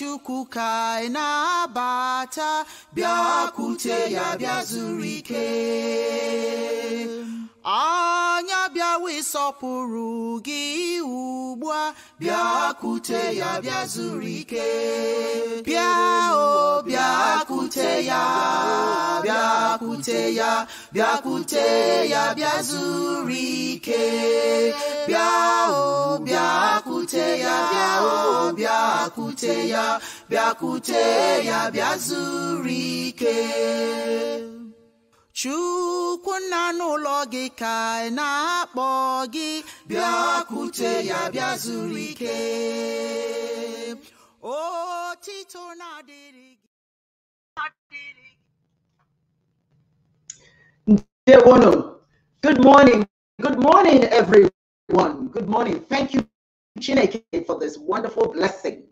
chukwu na na-abata bịa kwute ya bịa zuru ike anya bịawa ịsọpụrụ gị ugbu a bịa kute ya bịa zuru ike bịa o bịa kute ya bịa kute ya bịa kute ya bịa zuru ike bịa o bịa kute ya bịa o Bia kuteya, bia kuteya, bịa zurike. ike chukwu nna n'ụlọ gị ka ị na-akpọ gị bịakwute ya bịa zuru ike otito na-adịrị gị Good morning. Good morning, everyone. Good morning. Thank you Chineke for this wonderful blessing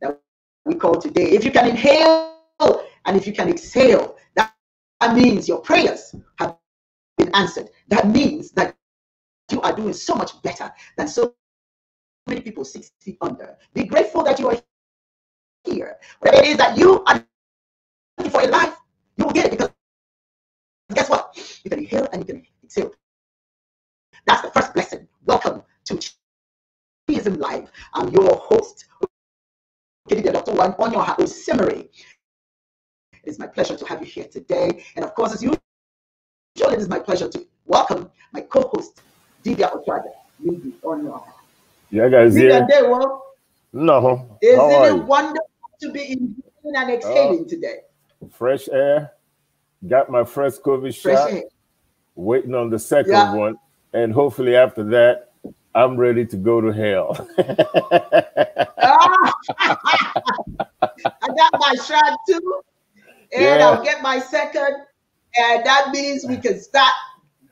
that we call today. If you can inhale and if you can exhale, that, that means your prayers have been answered. That means that you are doing so much better than so many people 60 under. Be grateful that you are here. Whatever it is that you are looking for in life, you will get it because guess what? You can inhale and you can exhale. That's the first blessing. Welcome to Evangelism Live. I'm your host, Dr. One on Onyoha Osemere. It's my pleasure to have you here today. And of course, as usual, it is my pleasure to welcome my co host, Divya Okwada, Lady Onyoha. Yeah, guys, yeah. Day, well, no. Isn't it you? wonderful to be in and exhaling uh, today? Fresh air. Got my first COVID fresh shot. Air. Waiting on the second yeah. one. And hopefully after that, I'm ready to go to hell. Ah! I got my shot too, and yeah. I'll get my second, and that means we can start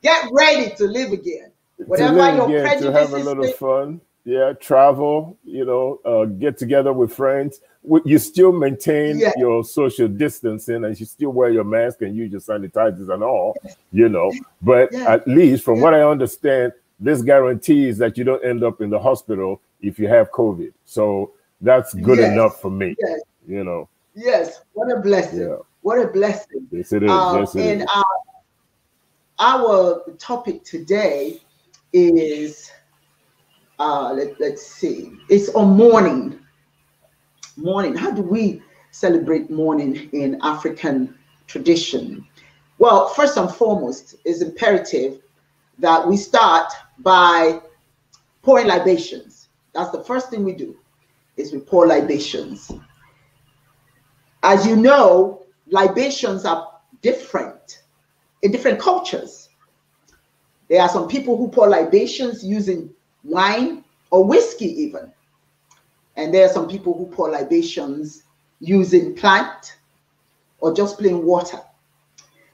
get ready to live again. Whatever live your again, prejudices, to have a little thing, fun, yeah, travel, you know, uh, get together with friends. You still maintain yeah. your social distancing, and you still wear your mask and use your sanitizers and all, you know. But yeah. at least, from what I understand, this guarantees that you don't end up in the hospital if you have COVID. So that's good yes. enough for me. Yes. You know. Yes. What a blessing. Yeah. What a blessing. Yes, it is. Um, yes, it and is. Our, uh, our topic today is uh, let, let's see. It's on mourning. Mourning. How do we celebrate mourning in African tradition? Well, first and foremost, it's imperative that we start by pouring libations. That's the first thing we do is we pour libations. As you know, libations are different in different cultures. There are some people who pour libations using wine or whiskey even. And there are some people who pour libations using plant or just plain water.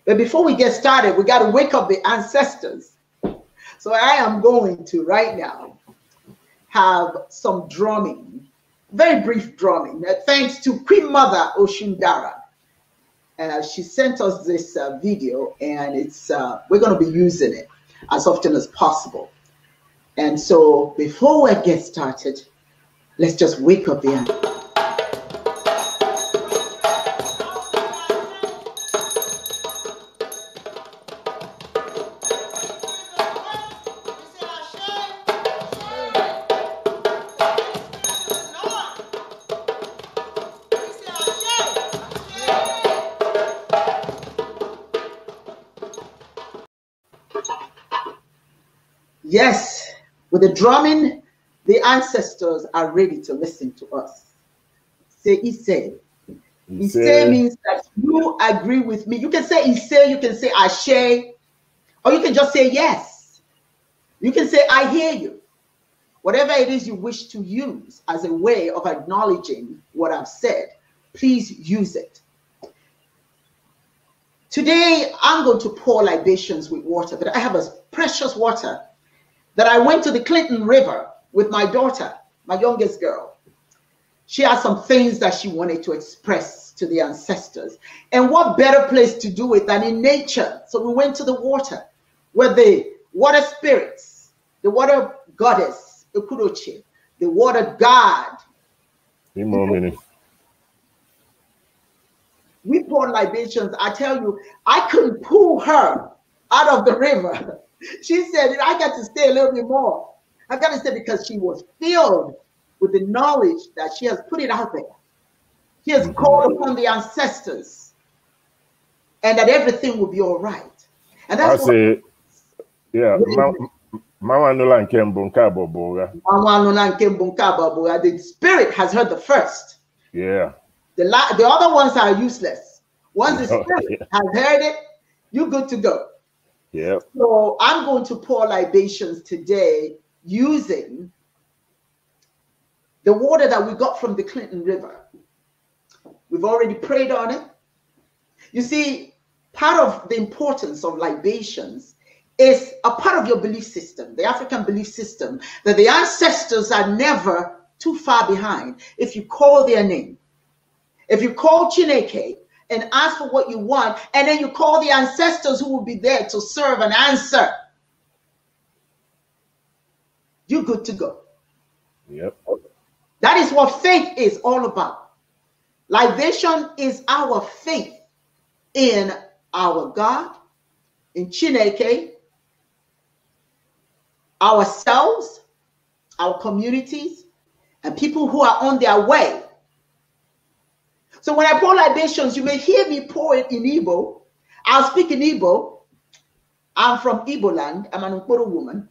But before we get started, we got to wake up the ancestors so I am going to right now have some drumming, very brief drumming, uh, thanks to Queen Mother Oshindara. Uh, she sent us this uh, video and it's uh, we're going to be using it as often as possible. And so before we get started, let's just wake up the animal. Yes, with the drumming, the ancestors are ready to listen to us. Say, Ise. Ise means that you agree with me. You can say Ise, you can say Ashe, or you can just say yes. You can say, I hear you. Whatever it is you wish to use as a way of acknowledging what I've said, please use it. Today, I'm going to pour libations with water, but I have a precious water that I went to the Clinton River with my daughter, my youngest girl. She had some things that she wanted to express to the ancestors. And what better place to do it than in nature? So we went to the water where the water spirits, the water goddess, Ukuruchi, the water god. Be more We poured libations. I tell you, I couldn't pull her out of the river she said, I got to stay a little bit more. I got to stay because she was filled with the knowledge that she has put it out there. He has called mm-hmm. upon the ancestors and that everything will be all right. And that's I say, yeah, Mama Nula nke mbụ nke Mama Nula nke The spirit has heard the first. Yeah. The la the other ones are useless. Once the spirit has heard it, you're good to go. Yeah. So I'm going to pour libations today using the water that we got from the Clinton River. We've already prayed on it. You see, part of the importance of libations is a part of your belief system, the African belief system, that the ancestors are never too far behind. If you call their name, if you call Chineke, and ask for what you want, and then you call the ancestors who will be there to serve and answer, you're good to go. Yep. That is what faith is all about. Libation is our faith in our God, in Chineke, ourselves, our communities, and people who are on their way so when I pour libations, you may hear me pour it in Igbo. I'll speak in Igbo. I'm from Igbo land. I'm an Nkoro woman.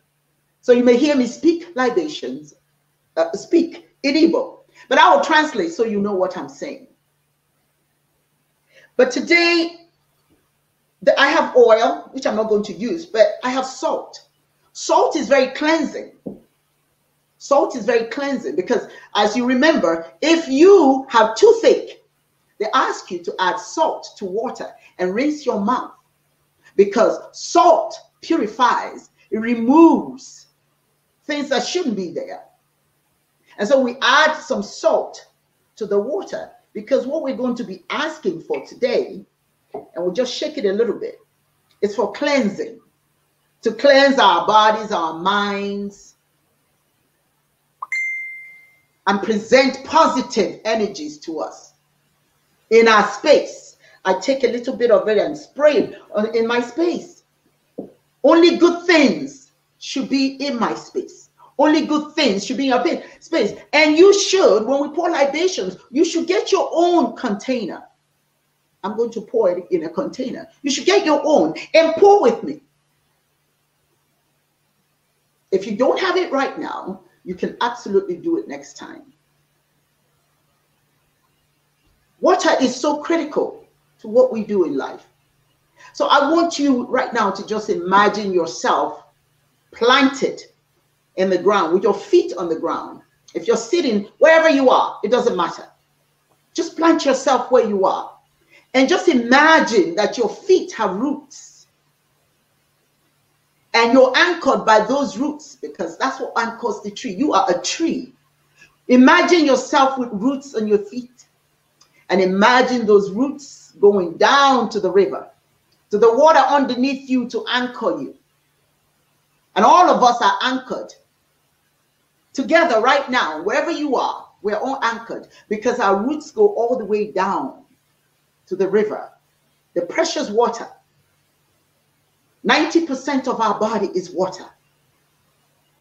So you may hear me speak libations, uh, speak in Igbo. But I will translate so you know what I'm saying. But today, the, I have oil, which I'm not going to use, but I have salt. Salt is very cleansing. Salt is very cleansing because, as you remember, if you have toothache, they ask you to add salt to water and rinse your mouth because salt purifies, it removes things that shouldn't be there. And so we add some salt to the water because what we're going to be asking for today, and we'll just shake it a little bit, is for cleansing to cleanse our bodies, our minds, and present positive energies to us in our space. I take a little bit of it and spray it in my space. Only good things should be in my space. Only good things should be in your space. And you should, when we pour libations, you should get your own container. I'm going to pour it in a container. You should get your own and pour with me. If you don't have it right now, you can absolutely do it next time. Water is so critical to what we do in life. So I want you right now to just imagine yourself planted in the ground with your feet on the ground. If you're sitting wherever you are, it doesn't matter. Just plant yourself where you are and just imagine that your feet have roots and you're anchored by those roots because that's what anchors the tree. You are a tree. Imagine yourself with roots on your feet and imagine those roots going down to the river, to the water underneath you to anchor you. And all of us are anchored together right now, wherever you are, we're all anchored because our roots go all the way down to the river, the precious water. 90% of our body is water.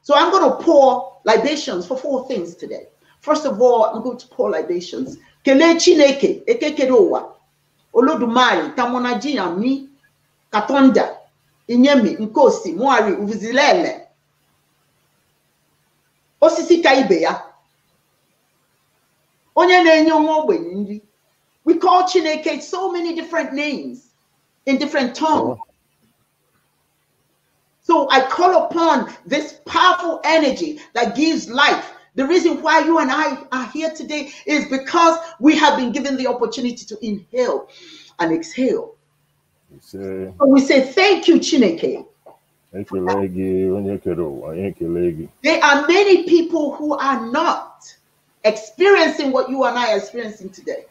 So I'm going to pour libations for four things today. First of all, I'm going to pour libations kelee chineke ekekere ụwa olodumari tamonajiyami katonda inyemi nkosi muari uvizilele osisi ka ibe ya onye na-enye nwa ogbenye nri we call chineke so many different names in different tongues oh. so i call upon this powerful energy that gives life the reason why you and I are here today is because we have been given the opportunity to inhale and exhale. So we say thank you, Chineke. There are many people who are not experiencing what you and I are experiencing today.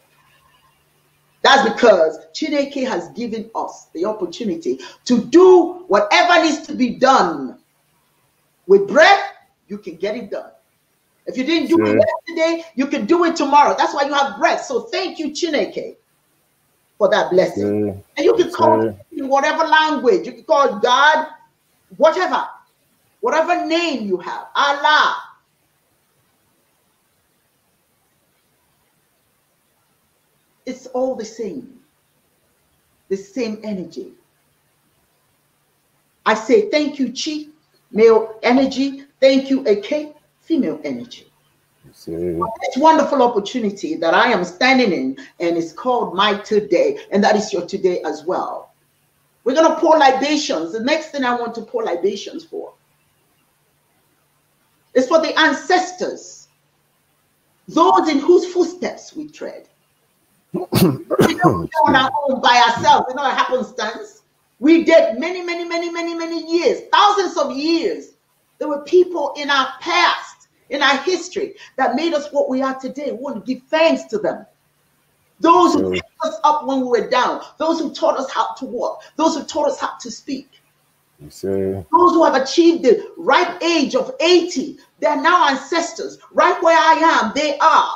That's because Chineke has given us the opportunity to do whatever needs to be done. With breath, you can get it done. If you didn't do sure. it yesterday, you can do it tomorrow. That's why you have breath. So thank you, Chineke, for that blessing. Sure. And you can call sure. in whatever language. You can call God, whatever, whatever name you have, Allah. It's all the same, the same energy. I say thank you, Chi, male energy. Thank you, AK female energy. It's wonderful opportunity that I am standing in, and it's called my today, and that is your today as well. We're going to pour libations. The next thing I want to pour libations for is for the ancestors, those in whose footsteps we tread. we don't on our own by ourselves, it's not a happenstance. We did many, many, many, many, many years, thousands of years. There were people in our past in our history that made us what we are today. We want to give thanks to them. Those who mm. picked us up when we were down, those who taught us how to walk, those who taught us how to speak. those who have achieved the ripe age of 80, they're now ancestors. Right where I am, they are.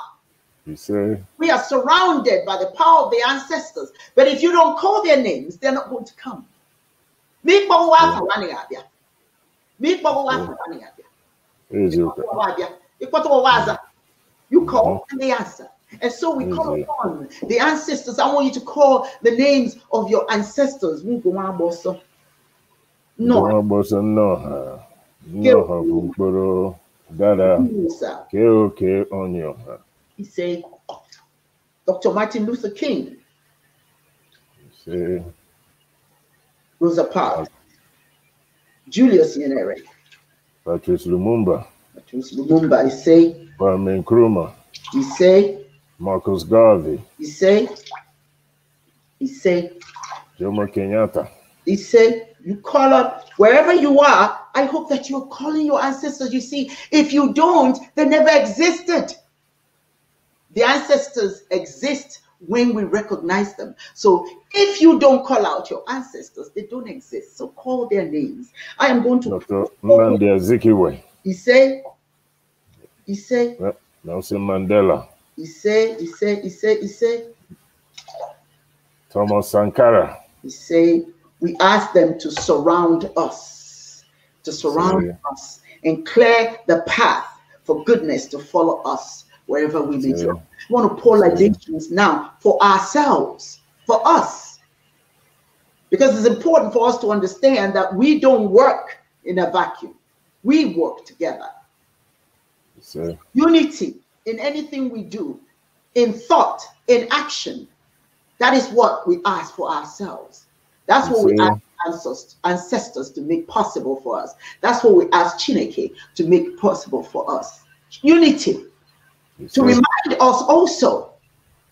see, we are surrounded by the power of the ancestors. But if you don't call their names, they're not going to come. Yeah. You mm-hmm. call and they answer. And so we call mm-hmm. upon the ancestors. I want you to call the names of your ancestors. No. No. He said, Dr. Martin Luther King. He Rosa Parks. Uh, Julius Nyerere. Patrice Lumumba. Patrice Lumumba, I say. Kwame Nkrumah. He say. Marcus Garvey. He say. He say. Jomo Kenyatta. He say. You call up wherever you are. I hope that you're calling your ancestors. You see, if you don't, they never existed. The ancestors exist when we recognize them. So if you don't call out your ancestors, they don't exist. So call their names. I am going to Dr. Nandi Azikiwe. He say, he say, Nelson Mandela. He say, he say, he say, he say. Thomas Sankara. He say, we ask them to surround us, to surround Sorry. us and clear the path for goodness to follow us wherever we may go. We want to pour libations now for ourselves, for us. Because it's important for us to understand that we don't work in a vacuum. We work together. Unity in anything we do, in thought, in action. That is what we ask for ourselves. That's what we ask ancestors to make possible for us. That's what we ask Chineke to make possible for us. Unity to remind us also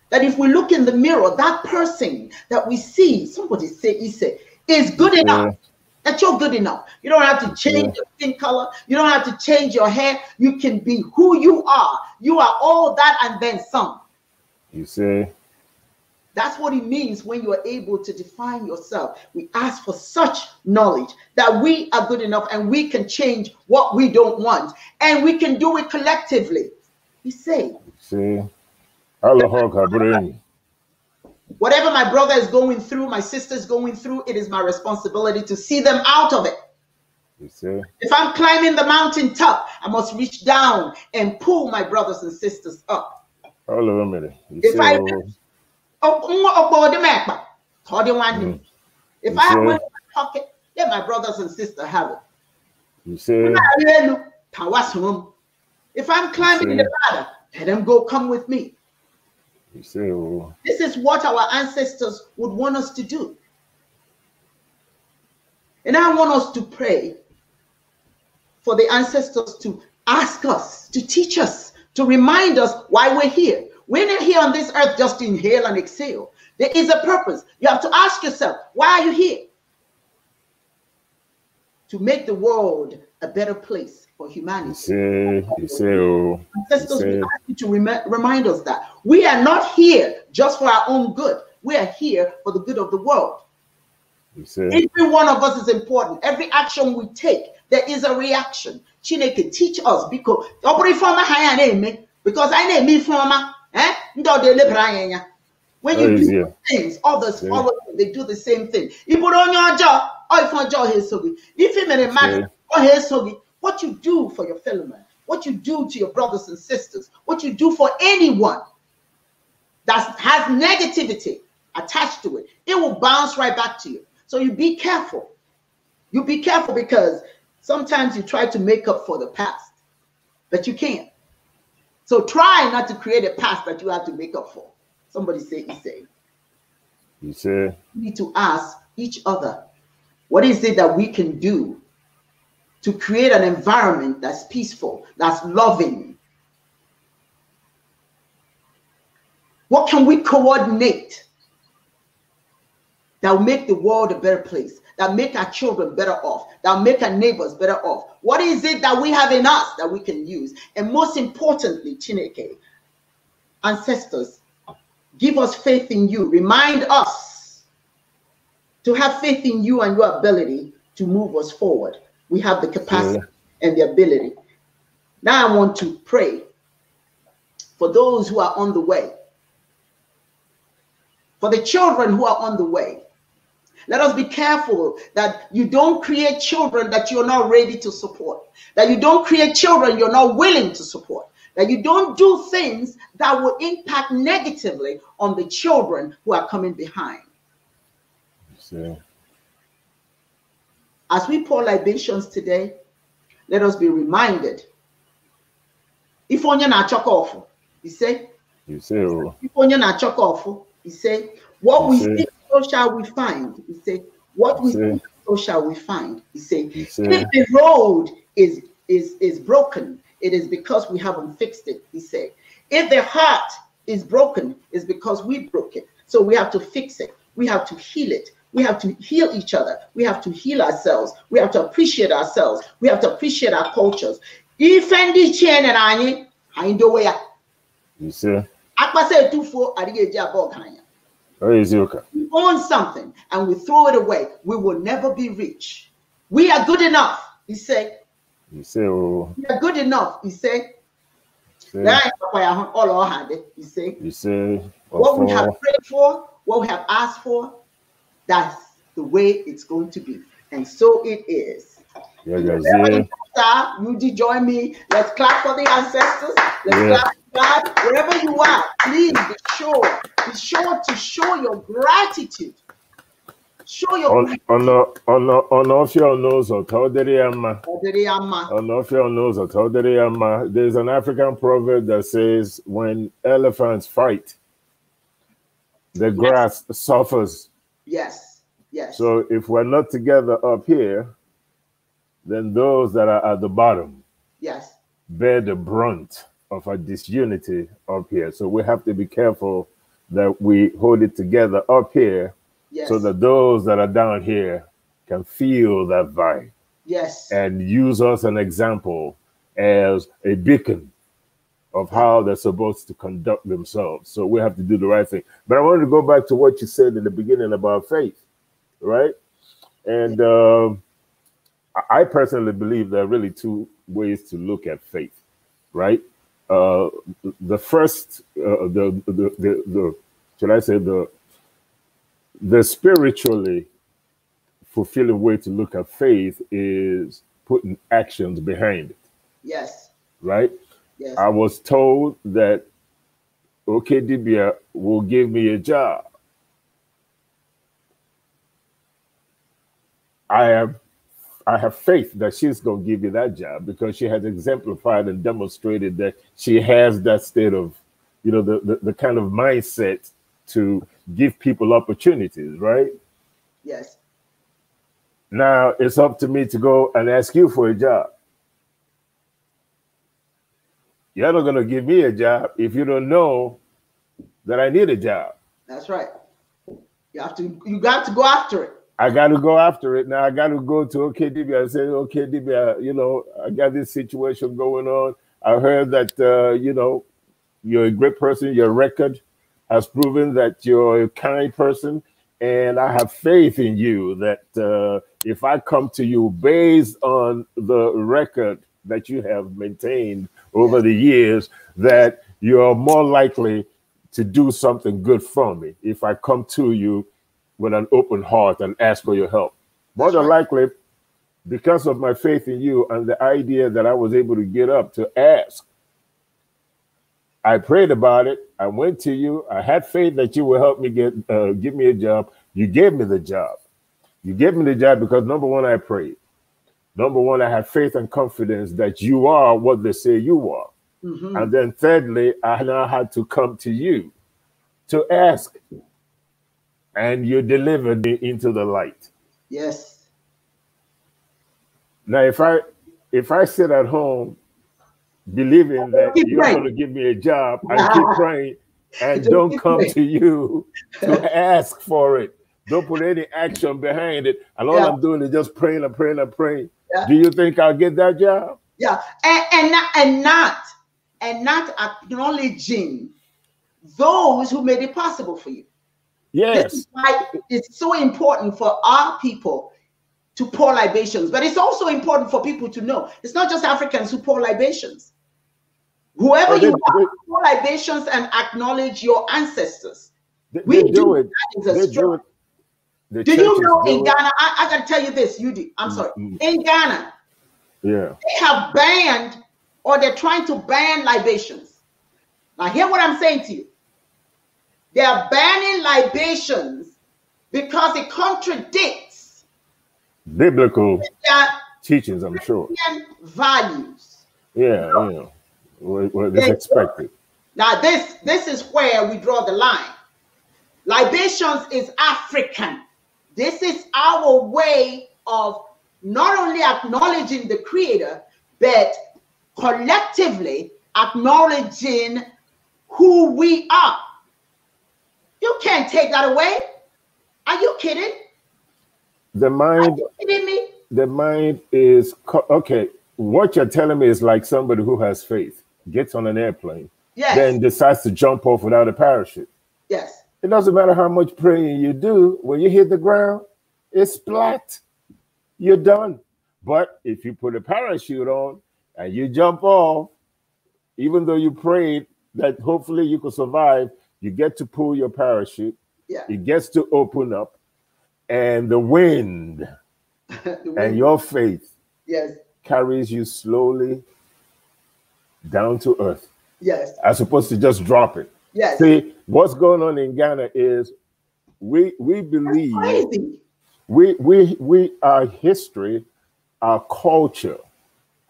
that if we look in the mirror, that person that we see, somebody say, Ise, is good enough. That you're good enough. You don't have to change yeah. your skin color. You don't have to change your hair. You can be who you are. You are all that and then some. You see? That's what it means when you are able to define yourself. We ask for such knowledge that we are good enough and we can change what we don't want. And we can do it collectively. You see? See? Whatever my brother is going through, my sister is going through, it is my responsibility to see them out of it. You see? If I'm climbing the mountain top, I must reach down and pull my brothers and sisters up. Hold on a minute. You if I, oh, oh, oh, oh mm. if I have in my pocket, let my brothers and sisters have it. You see? If I'm climbing the ladder, let them go come with me. this is what our ancestors would want us to do. And I want us to pray for the ancestors to ask us, to teach us, to remind us why we're here. We're not here on this earth just to inhale and exhale. There is a purpose. You have to ask yourself, why are you here? To make the world a better place for humanity. You see, you see, oh, Ancestors, we ask you to rem- remind us that we are not here just for our own good. We are here for the good of the world. Every one of us is important. Every action we take, there is a reaction. Chineke, teach us because ọ bụrụ ifeọma ha because I name me former eh? ndị ọdụ anya when you oh, do yeah. things others yeah. follow you they do the same thing ị bụrụ onye ọjọọ ọ ife so good. If you ife mere man ọ ha so good. What you do for your fellow man, what you do to your brothers and sisters, what you do for anyone that has negativity attached to it, it will bounce right back to you. So you be careful. You be careful because sometimes you try to make up for the past, but you can't. So try not to create a past that you have to make up for. Somebody say, say." You say. We need to ask each other, what is it that we can do to create an environment that's peaceful, that's loving. What can we coordinate that will make the world a better place, that make our children better off, that make our neighbors better off? What is it that we have in us that we can use? And most importantly, Chineke, ancestors, give us faith in you. Remind us to have faith in you and your ability to move us forward. We have the capacity yeah. and the ability. Now I want to pray for those who are on the way, for the children who are on the way. Let us be careful that you don't create children that you're not ready to support, that you don't create children you're not willing to support, that you don't do things that will impact negatively on the children who are coming behind. Yeah. As we pour libations today, let us be reminded. If onye na chuck off, he say, oh. if onye na chuck off, he say, what we see, so shall we find. He say, what we see, so shall we find. He say, if the road is is is broken, it is because we haven't fixed it. He say. if the heart is broken, it's because we broke it. So we have to fix it. We have to heal it. We have to heal each other. We have to heal ourselves. We have to appreciate ourselves. We have to appreciate our cultures. Ifendi chen and anyị anyị dowe ya. Akpasa etufuo adịghị eji abụọ ka okay? We own something and we throw it away. We will never be rich. We are good enough, he say. You say, oh. We are good enough, he said. All he say, What we have prayed for, what we have asked for, that's the way it's going to be. And so it is. Yeah, guys, yeah. You join me. Let's clap for the ancestors. Let's yeah. clap for God. Wherever you are, please be sure, be sure to show your gratitude. Show your ọnọfịa ọnụụzọ ka ọ There is an African proverb that says, when elephants fight, the grass yes. suffers. Yes. Yes. So if we're not together up here, then those that are at the bottom yes bear the brunt of our disunity up here. So we have to be careful that we hold it together up here yes. so that those that are down here can feel that vibe. Yes. And use us an example as a beacon of how they're supposed to conduct themselves. So we have to do the right thing. But I wanted to go back to what you said in the beginning about faith, right? And uh, I personally believe there are really two ways to look at faith, right? Uh, the first, uh, the, the, the, the, should I say, the, the spiritually fulfilling way to look at faith is putting actions behind it. Yes. Right? I was told that Okedibia will give me a job. I have I have faith that she's going to give you that job because she has exemplified and demonstrated that she has that state of, you know, the, the, the kind of mindset to give people opportunities, right? Yes. Now it's up to me to go and ask you for a job. Y'all not gonna give me a job if you don't know that I need a job. That's right. You have to you got to go after it. I got to go after it. Now I got to go to OKDB. I say, OKDB, you know, I got this situation going on. I heard that, uh, you know, you're a great person. Your record has proven that you're a kind person. And I have faith in you that uh, if I come to you based on the record that you have maintained over the years that you're more likely to do something good for me if I come to you with an open heart and ask for your help. More than likely, because of my faith in you and the idea that I was able to get up to ask, I prayed about it. I went to you. I had faith that you would help me get uh, give me a job. You gave me the job. You gave me the job because number one, I prayed. Number one, I have faith and confidence that you are what they say you are. Mm-hmm. And then thirdly, I now had to come to you to ask. And you delivered me into the light. Yes. Now, if I if I sit at home believing that you're going to give me a job, I keep praying and don't come to you to ask for it. Don't put any action behind it. And all yeah. I'm doing is just praying and praying and praying. Yeah. Do you think I'll get that job? Yeah, and and not, and not and not acknowledging those who made it possible for you. Yes, why it's so important for our people to pour libations, but it's also important for people to know it's not just Africans who pour libations. Whoever oh, they, you are, they, pour libations and acknowledge your ancestors. They, we do, do it. That is a they the do you know in Ghana? I, I got to tell you this, you do. I'm sorry. Mm-hmm. In Ghana, yeah, they have banned or they're trying to ban libations. Now, hear what I'm saying to you. They are banning libations because it contradicts biblical teachings. I'm sure values. Yeah, yeah. What is expected. Now, this this is where we draw the line. Libations is African. This is our way of not only acknowledging the creator, but collectively acknowledging who we are. You can't take that away. Are you kidding? The mind. kidding me? The mind is okay. What you're telling me is like somebody who has faith gets on an airplane, yes. then decides to jump off without a parachute. Yes. It doesn't matter how much praying you do, when you hit the ground, it's flat. You're done. But if you put a parachute on and you jump off, even though you prayed that hopefully you could survive, you get to pull your parachute. Yeah. It gets to open up. And the wind, the wind. and your faith yes. carries you slowly down to earth. Yes. As opposed to just drop it. Yes. See, what's going on in Ghana is we we believe we we we our history, our culture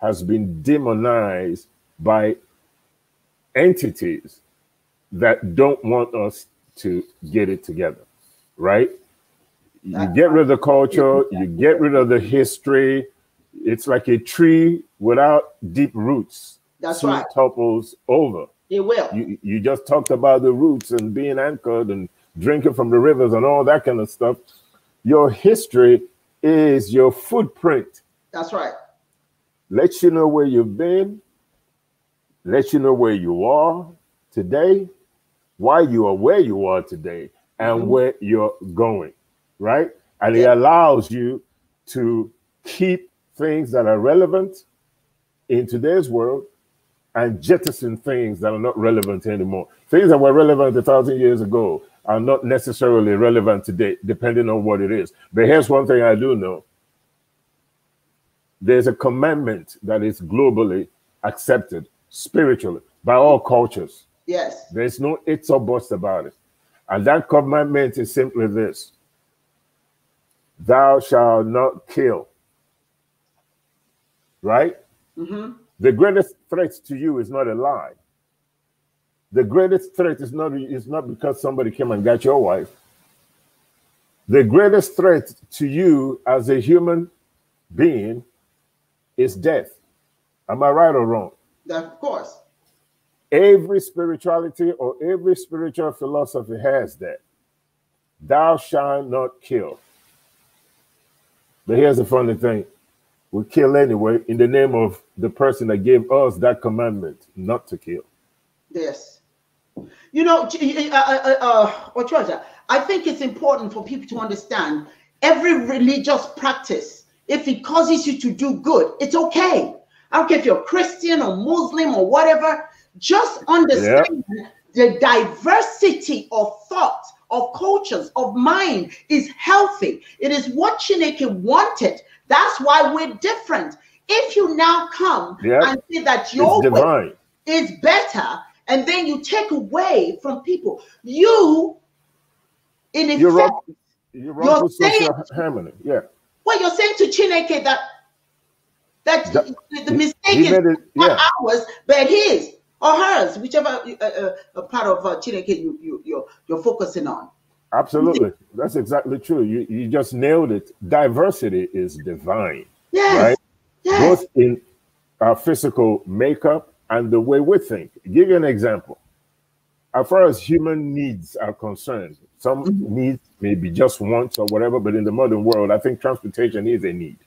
has been demonized by entities that don't want us to get it together, right? You get rid of the culture, you get rid of the history. It's like a tree without deep roots. That's right. Topples over. It will. You, you just talked about the roots and being anchored and drinking from the rivers and all that kind of stuff. Your history is your footprint. That's right. Let you know where you've been, let you know where you are today, why you are where you are today, and mm-hmm. where you're going, right? And yeah. it allows you to keep things that are relevant in today's world and jettison things that are not relevant anymore. Things that were relevant a thousand years ago are not necessarily relevant today, depending on what it is. But here's one thing I do know there's a commandment that is globally accepted spiritually by all cultures. Yes. There's no it's or buts about it. And that commandment is simply this Thou shalt not kill. Right? Mm -hmm. The greatest threat to you is not a lie. The greatest threat is not, is not because somebody came and got your wife. The greatest threat to you as a human being is death. Am I right or wrong? Of course. Every spirituality or every spiritual philosophy has that. Thou shalt not kill. But here's the funny thing we kill anyway in the name of the person that gave us that commandment not to kill. Yes. You know, eh, eh, eh, uh, uh, uh, I think it's important for people to understand every religious practice, if it causes you to do good, it's okay. I don't care if you're Christian or Muslim or whatever, just understand yeah. the diversity of thought, of cultures, of mind is healthy. It is what Chineke wanted that's why we're different. If you now come yep. and say that your way is better, and then you take away from people, you, in effect, you're, wrong, you're, wrong you're saying, Harmony. yeah. What you're saying to Chineke that that the, the mistake is it, yeah. ours, but his or hers, whichever uh, uh, uh, part of uh, Chineke you, you, you're, you're focusing on. Absolutely. That's exactly true. You, you just nailed it. Diversity is divine. Yes. Right? Yes. Both in our physical makeup and the way we think. Give you an example. As far as human needs are concerned, some mm -hmm. needs maybe just wants or whatever, but in the modern world, I think transportation is a need.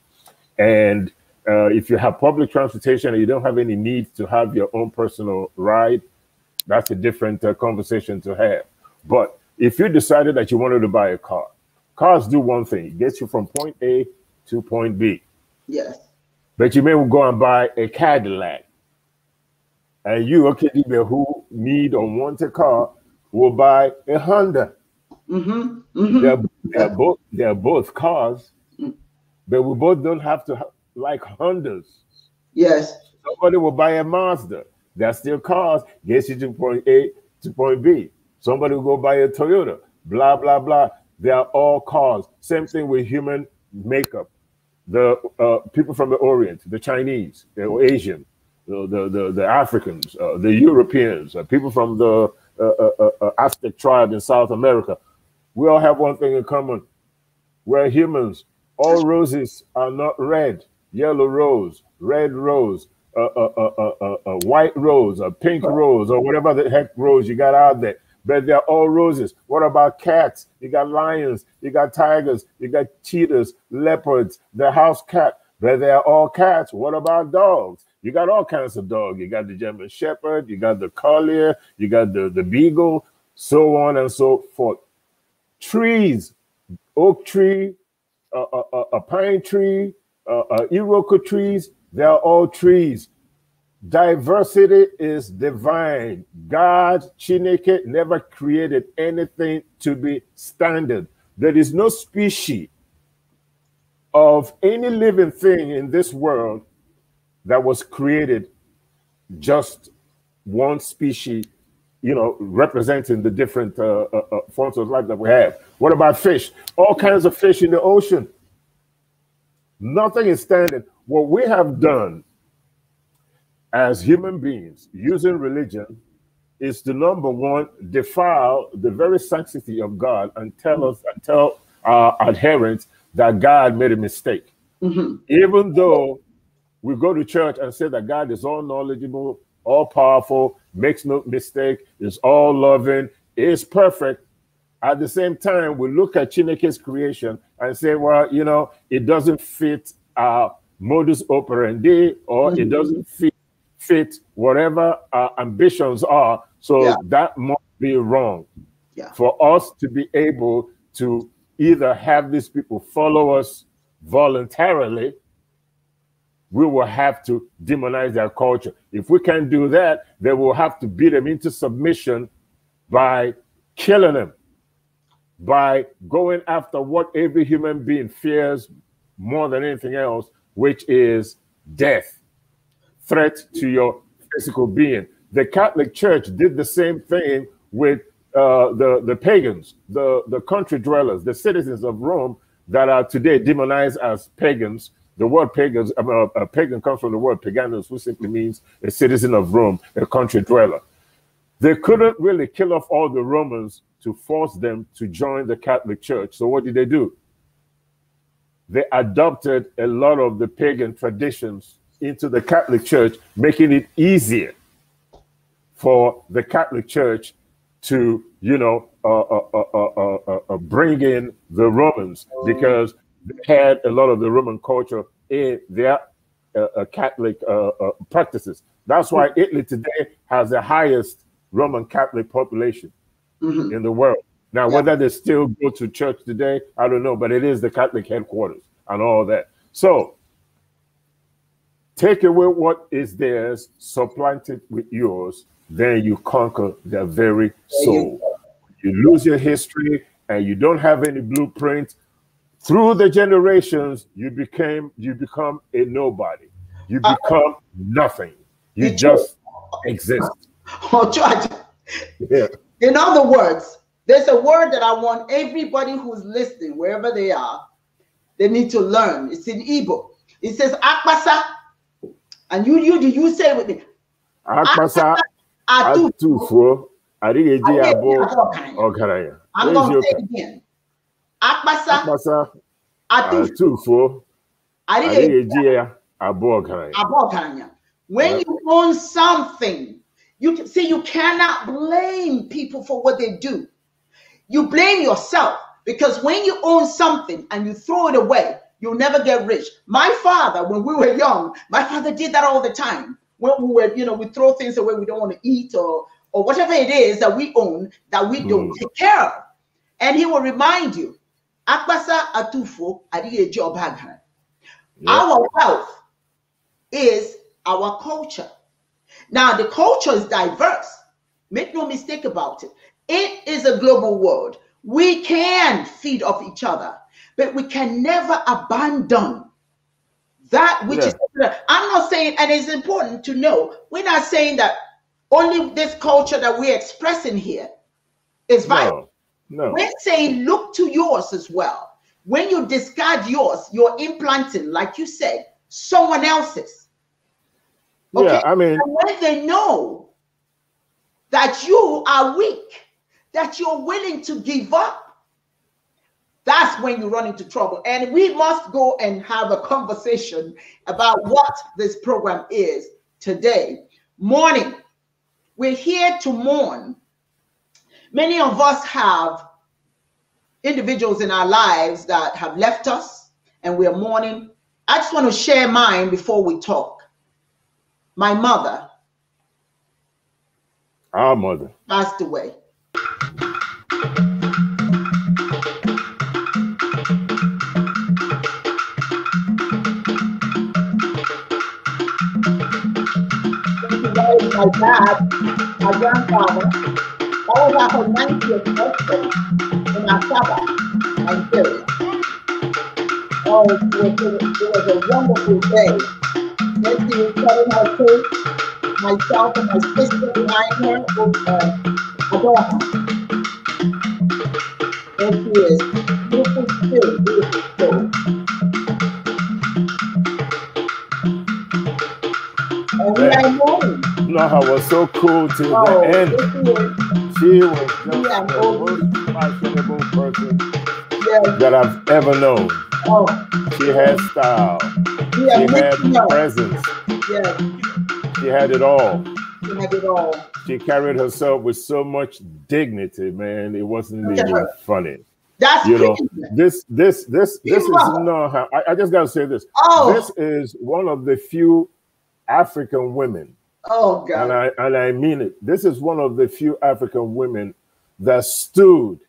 And uh, if you have public transportation and you don't have any need to have your own personal ride, that's a different uh, conversation to have. But if you decided that you wanted to buy a car, cars do one thing: it gets you from point A to point B. Yes. But you may go and buy a Cadillac, and you, okay, who need or want a car, will buy a Honda. Mm -hmm. Mm -hmm. They're, mm-hmm. they're both they're both cars, mm. but we both don't have to like Hondas. Yes. Somebody will buy a Mazda. That's still cars. Gets you to point A to point B. Somebody will go buy a Toyota, blah, blah, blah. They are all cars. Same thing with human makeup. The uh, people from the Orient, the Chinese, or Asian, the, the, the, the Africans, uh, the Europeans, uh, people from the uh, uh, uh, Aztec tribe in South America, we all have one thing in common. We're humans. All roses are not red. Yellow rose, red rose, a, a, a, a, white rose, a pink rose, or whatever the heck rose you got out there but they're all roses. What about cats? You got lions, you got tigers, you got cheetahs, leopards, the house cat, but they're all cats. What about dogs? You got all kinds of dogs. You got the German Shepherd, you got the Collier, you got the, the Beagle, so on and so forth. Trees, oak tree, a, a, a pine tree, uh, uh, Iroquois trees, they're all trees. Diversity is divine. God, Chineke, never created anything to be standard. There is no species of any living thing in this world that was created just one species, you know, representing the different uh, uh, uh forms of life that we have. What about fish? All kinds of fish in the ocean. Nothing is standard. What we have done as human beings using religion is to number one defile the very sanctity of God and tell us and tell our adherents that God made a mistake. Mm -hmm. Even though we go to church and say that God is all knowledgeable, all powerful, makes no mistake, is all loving, is perfect. At the same time, we look at Chineke's creation and say, well, you know, it doesn't fit our modus operandi or mm -hmm. it mm-hmm. doesn't fit fit whatever our ambitions are. So yeah. that must be wrong. Yeah. For us to be able to either have these people follow us voluntarily, we will have to demonize their culture. If we can't do that, then we'll have to beat them into submission by killing them, by going after what every human being fears more than anything else, which is death threat to your physical being. The Catholic Church did the same thing with uh, the, the pagans, the, the country dwellers, the citizens of Rome that are today demonized as pagans. The word pagans, uh, uh pagan comes from the word paganus, which simply means a citizen of Rome, a country dweller. They couldn't really kill off all the Romans to force them to join the Catholic Church. So what did they do? They adopted a lot of the pagan traditions into the Catholic Church, making it easier for the Catholic Church to, you know, uh uh, uh, uh, uh, bring in the Romans because they had a lot of the Roman culture in their Catholic practices. That's why Italy today has the highest Roman Catholic population mm -hmm. in the world. Now, yeah. whether they still go to church today, I don't know, but it is the Catholic headquarters and all that. So Take away what is theirs, supplant it with yours, then you conquer their very soul. You lose your history and you don't have any blueprint. Through the generations, you became you become a nobody. You uh, become uh, nothing. You just you, exist. Oh, George. Yeah. In other words, there's a word that I want everybody who's listening, wherever they are, they need to learn. It's in Igbo. It says akpasa and you you you say with me. Akpasa atufuo adịghị ya bụ ọgaranya. I'm going to say it again. Akpasa atufuo adịghị ya abụ ọgaranya. Abụ ọgaranya. When ah. you own something, you see you cannot blame people for what they do. You blame yourself because when you own something and you throw it away, You'll never get rich. My father, when we were young, my father did that all the time. When we were, you know, we throw things away we don't want to eat or or whatever it is that we own that we don't mm. take care of. And he will remind you, Akbasa Atufo job Baghan. Our wealth is our culture. Now, the culture is diverse. Make no mistake about it. It is a global world. We can feed off each other but we can never abandon that which yeah. is. I'm not saying, and it's important to know, we're not saying that only this culture that we're expressing here is vital. No, no. We're saying look to yours as well. When you discard yours, you're implanting, like you said, someone else's. Okay? Yeah, I mean, and when they know that you are weak, that you're willing to give up, that's when you run into trouble. And we must go and have a conversation about what this program is today. Mourning. We're here to mourn. Many of us have individuals in our lives that have left us and we're mourning. I just want to share mine before we talk. My mother. Our mother. Passed away. my dad, my grandfather, all about her 90th birthday in October, Nigeria. Oh, it was, it, was a wonderful day. Nancy was cutting her cake, myself and my sister behind her with uh, a daughter. There she is, beautiful spirit, I was so cool till oh, the end. She was just yeah, the most fashionable person yeah. that I've ever known. Oh. She had style. Yeah, she had yeah. presence. Yeah. She had it all. She had it all. She carried herself with so much dignity, man. It wasn't even funny. That's you know this this this this is no. I, I just gotta say this. Oh. This is one of the few African women Oh God. And I and I mean it. This is one of the few African women that stood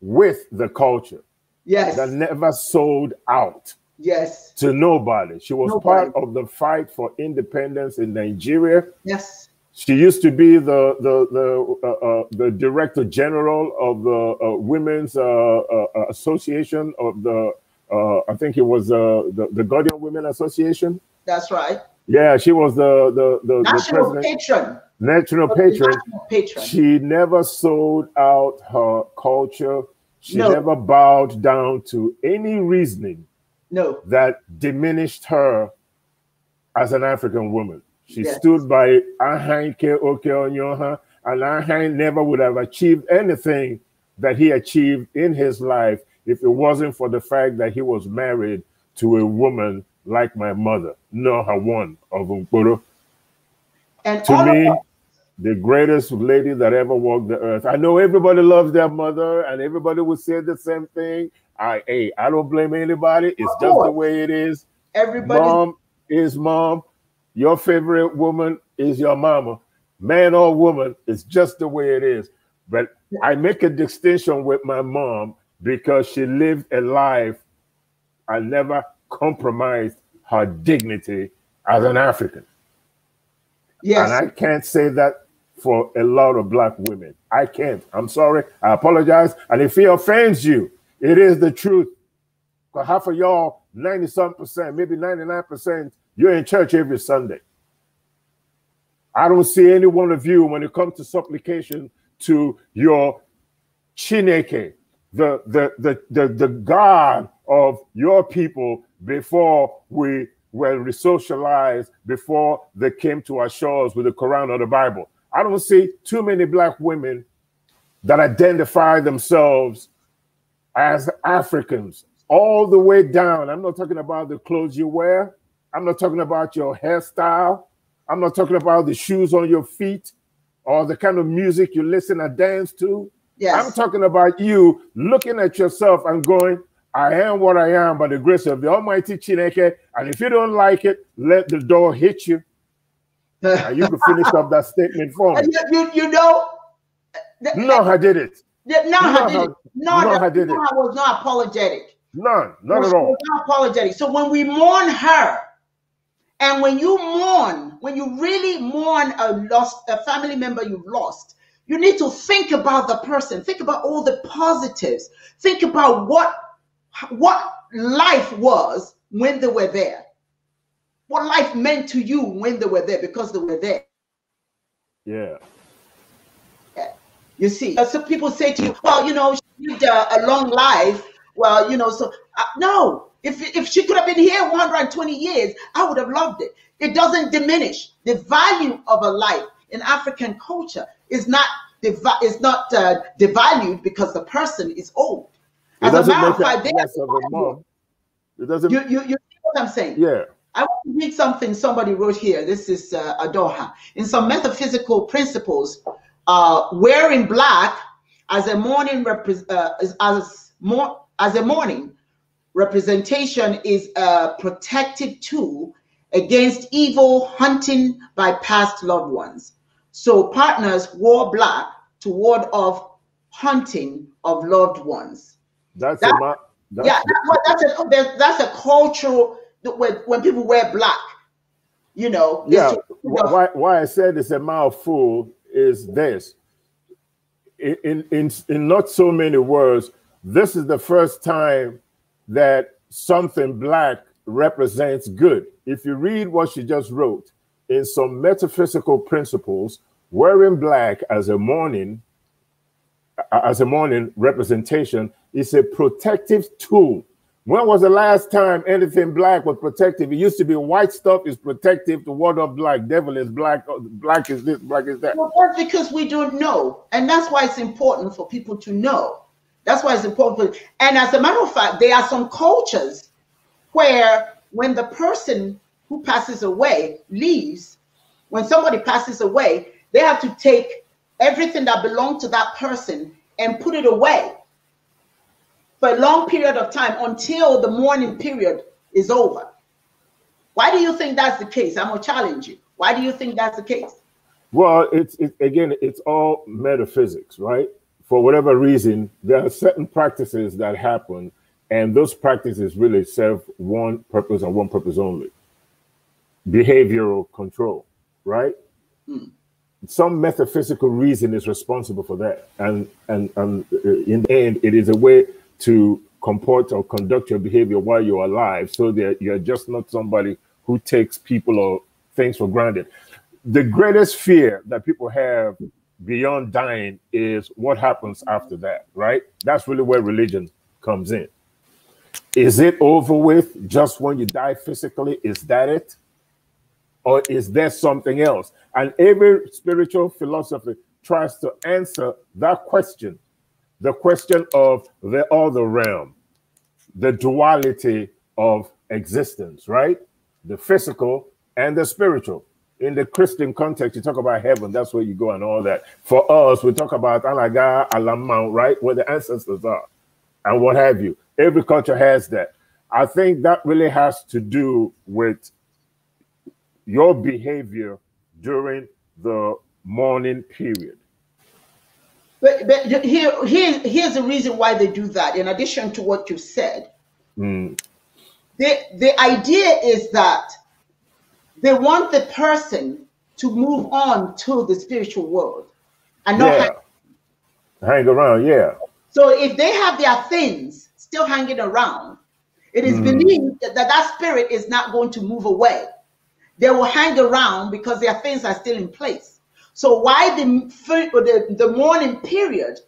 with the culture. Yes. That never sold out. Yes. To nobody. She was nobody. part of the fight for independence in Nigeria. Yes. She used to be the the the uh, uh, the director general of the uh, Women's uh, uh, Association of the uh, I think it was the the Guardian Women Association. That's right. Yeah, she was the the, the national the patron. National patron. national patron. She never sold out her culture. She no. never bowed down to any reasoning no. that diminished her as an African woman. She yes. stood by Ahanke Okeonyoha, and Ahan never would have achieved anything that he achieved in his life if it wasn't for the fact that he was married to a woman like my mother, nor her one of Unkoro. Uh, and to me, the greatest lady that ever walked the earth. I know everybody loves their mother, and everybody will say the same thing. I hey, I don't blame anybody. It's just the way it is. Everybody, mom is mom. Your favorite woman is your mama, man or woman. It's just the way it is. But I make a distinction with my mom because she lived a life I never compromised her dignity as an African. Yes. And I can't say that for a lot of black women. I can't. I'm sorry. I apologize. And if it offends you, it is the truth. But half of y'all, 90 some percent, maybe 99%, you're in church every Sunday. I don't see any one of you when it comes to supplication to your Chineke, the, the, the, the, the God of your people before we were resocialized, before they came to our shores with the Quran or the Bible. I don't see too many black women that identify themselves as Africans all the way down. I'm not talking about the clothes you wear. I'm not talking about your hairstyle. I'm not talking about the shoes on your feet or the kind of music you listen and dance to. Yes. I'm talking about you looking at yourself and going, I am what I am by the grace of the Almighty Chineke. And if you don't like it, let the door hit you. and you can finish up that statement for me. You, you, you know, the, no, I did it. no, I did it. No, I did no, it. I was not apologetic. None, not at all. Not apologetic. So when we mourn her, and when you mourn, when you really mourn a lost a family member you've lost, you need to think about the person. Think about all the positives. Think about what what life was when they were there, what life meant to you when they were there because they were there. Yeah. yeah. You see, so people say to you, well, you know, she lived a, a long life. Well, you know, so uh, no, if, if she could have been here 120 years, I would have loved it. It doesn't diminish the value of a life in African culture is not is not uh, devalued because the person is old. As a matter of fact, they of a mom. It doesn't. You, you, you see what I'm saying? Yeah. I want to read something somebody wrote here. This is uh, Adoha. In some metaphysical principles, uh, wearing black as a morning uh, as, as, more, as a morning representation is a protective tool against evil hunting by past loved ones. So partners wore black to ward off hunting of loved ones. That's that, a, that's, yeah. That's, that's a that's a cultural when when people wear black. You know. Yeah. You know, why why I said it's a mouthful is this. In in in not so many words, this is the first time that something black represents good. If you read what she just wrote, in some metaphysical principles, wearing black as a mourning, as a mourning representation it's a protective tool. When was the last time anything black was protective? It used to be white stuff is protective. The word of black devil is black. Oh, black is this, black is that. Well, that's because we don't know, and that's why it's important for people to know. That's why it's important. For, and as a matter of fact, there are some cultures where when the person who passes away leaves, when somebody passes away, they have to take everything that belonged to that person and put it away for a long period of time until the mourning period is over. Why do you think that's the case? I'm gonna challenge you. Why do you think that's the case? Well, it's it, again, it's all metaphysics, right? For whatever reason, there are certain practices that happen, and those practices really serve one purpose and one purpose only: behavioral control, right? Hmm. Some metaphysical reason is responsible for that, and and and uh, in the end, it is a way to comport or conduct your behavior while you're alive so that you're just not somebody who takes people or things for granted. The greatest fear that people have beyond dying is what happens after that, right? That's really where religion comes in. Is it over with just when you die physically? Is that it? Or is there something else? And every spiritual philosophy tries to answer that question the question of the other realm, the duality of existence, right? The physical and the spiritual. In the Christian context, you talk about heaven, that's where you go and all that. For us, we talk about Alaga, Alam right? Where the ancestors are and what have you. Every culture has that. I think that really has to do with your behavior during the mourning period. But, but here, here, here's the reason why they do that, in addition to what you said. Mm. The, the idea is that they want the person to move on to the spiritual world and not yeah. hang-, hang around. Yeah. So if they have their things still hanging around, it is mm. believed that that spirit is not going to move away. They will hang around because their things are still in place. So why the the, the mourning period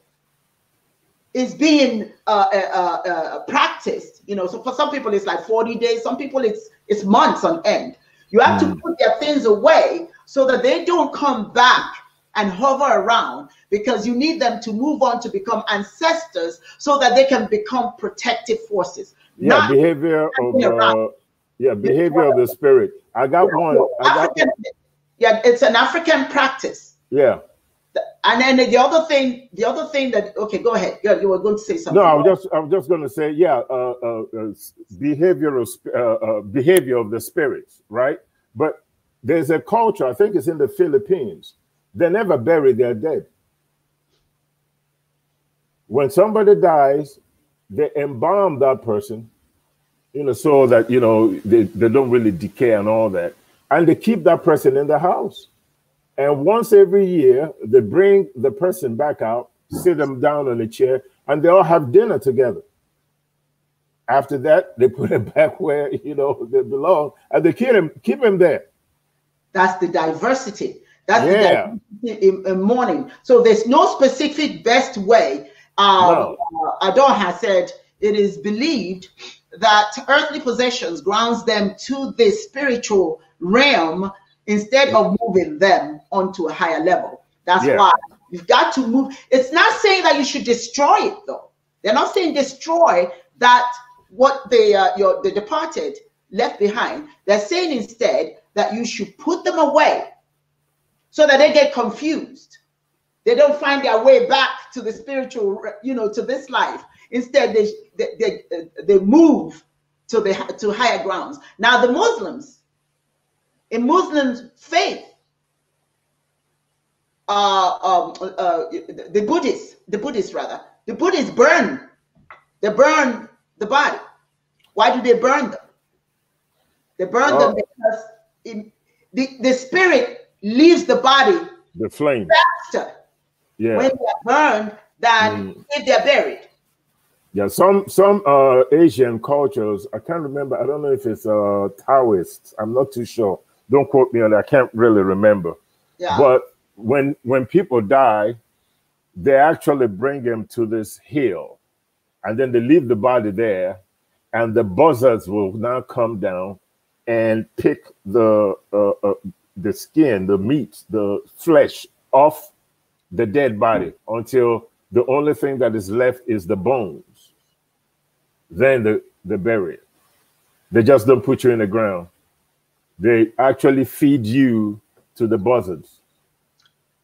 is being uh, uh, uh, uh, practiced? You know, so for some people it's like 40 days. Some people it's it's months on end. You have mm. to hmm. put their things away so that they don't come back and hover around because you need them to move on to become ancestors so that they can become protective forces. Yeah, behavior of uh, yeah, behavior of the spirit. I got one. I got yeah, it's an African practice. Yeah. And then the other thing, the other thing that okay, go ahead. You, you were going to say something. No, I was just I was just going to say, yeah, uh, uh, uh behavioral uh, uh, behavior of the spirits, right? But there's a culture. I think it's in the Philippines. They never bury their dead. When somebody dies, they embalm that person, you know, so that you know they, they don't really decay and all that and they keep that person in the house. And once every year, they bring the person back out, sit them down on a chair, and they all have dinner together. After that, they put him back where you know they belong, and they keep him keep him there. That's the diversity. That's yeah. the diversity in, in mourning. So there's no specific best way. Um, no. uh, Adon has said it is believed that earthly possessions grounds them to the spiritual realm instead of moving them onto a higher level. That's yeah. why you've got to move. It's not saying that you should destroy it though. They're not saying destroy that what they uh, your the departed left behind. They're saying instead that you should put them away so that they get confused. They don't find their way back to the spiritual, you know, to this life. Instead, they they, they, they move to the to higher grounds. Now the Muslims in Muslims' faith, uh, um, uh, the Buddhists, the Buddhists rather, the Buddhists burn, they burn the body. Why do they burn them? They burn oh. them because the, the spirit leaves the body the flame faster yeah. when they're burned than mm. if they're buried. Yeah, some some uh, Asian cultures, I can't remember, I don't know if it's uh, Taoist, I'm not too sure don't quote me on that. I can't really remember. Yeah. But when when people die, they actually bring them to this hill, and then they leave the body there, and the buzzards will now come down and pick the uh, uh, the skin, the meat, the flesh off the dead body until the only thing that is left is the bones. Then the, the bury it. They just don't put you in the ground they actually feed you to the buzzards.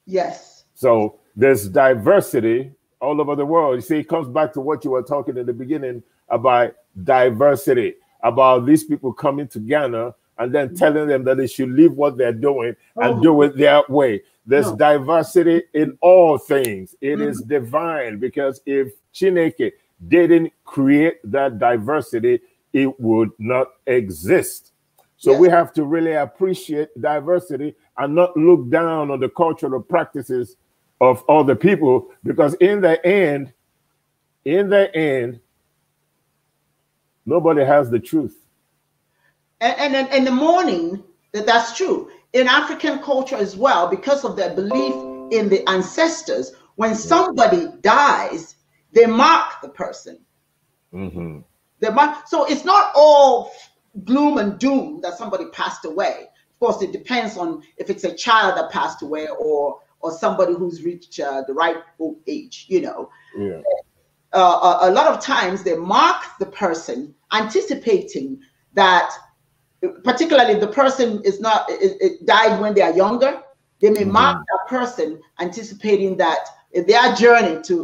Yes. So there's diversity all over the world. You see, it comes back to what you were talking in the beginning about diversity, about these people coming to Ghana and then telling them that they should leave what they're doing and oh. do it their way. There's no. diversity in all things. It mm. is mm-hmm. divine because if Chineke didn't create that diversity, it would not exist. So yeah. we have to really appreciate diversity and not look down on the cultural practices of other people because in the end, in the end, nobody has the truth. And, and in the morning, that that's true. In African culture as well, because of their belief in the ancestors, when somebody dies, they mark the person. Mm-hmm. They mark, so it's not all gloom and doom that somebody passed away. Of course, it depends on if it's a child that passed away or or somebody who's reached uh, the right age. You know, yeah. uh, a, uh, a lot of times they mark the person anticipating that, particularly if the person is not it, it died when they are younger, they may mm -hmm. mark that person anticipating that their journey to,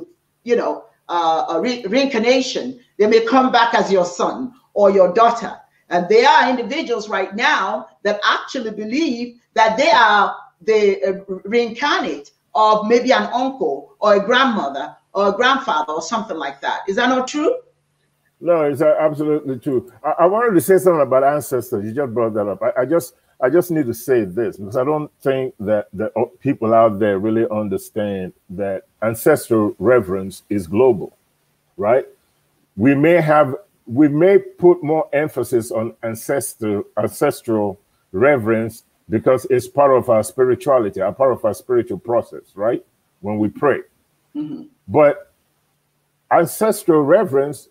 you know, uh, re reincarnation, they may come back as your son or your daughter and there are individuals right now that actually believe that they are the uh, reincarnate of maybe an uncle or a grandmother or a grandfather or something like that. Is that not true? No, it's uh, absolutely true. I, I wanted to say something about ancestors. You just brought that up. I, I just I just need to say this because I don't think that the uh, people out there really understand that ancestral reverence is global, right? We may have we may put more emphasis on ancestral ancestral reverence because it's part of our spirituality, a part of our spiritual process, right? When we pray. Mm -hmm. But ancestral reverence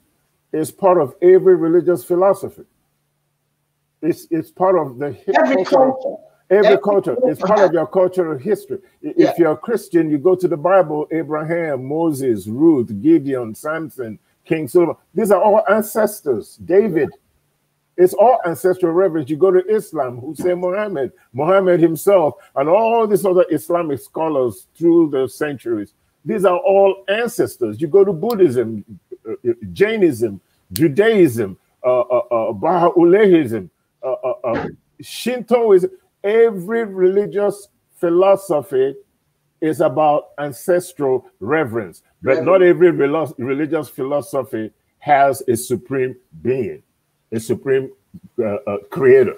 is part of every religious philosophy. It's it's part of the every culture. Every, every culture. It's part of your cultural history. If yeah. you're a Christian, you go to the Bible, Abraham, Moses, Ruth, Gideon, Samson, King Solomon. These are all ancestors. David. It's all ancestral reverence. You go to Islam, Hussein Muhammad, Muhammad himself, and all these other Islamic scholars through the centuries. These are all ancestors. You go to Buddhism, uh, uh, Jainism, Judaism, uh, uh, uh, uh, uh, uh, Shintoism, every religious philosophy is about ancestral reverence, but yeah. not every religious philosophy has a supreme being, a supreme uh, uh, creator.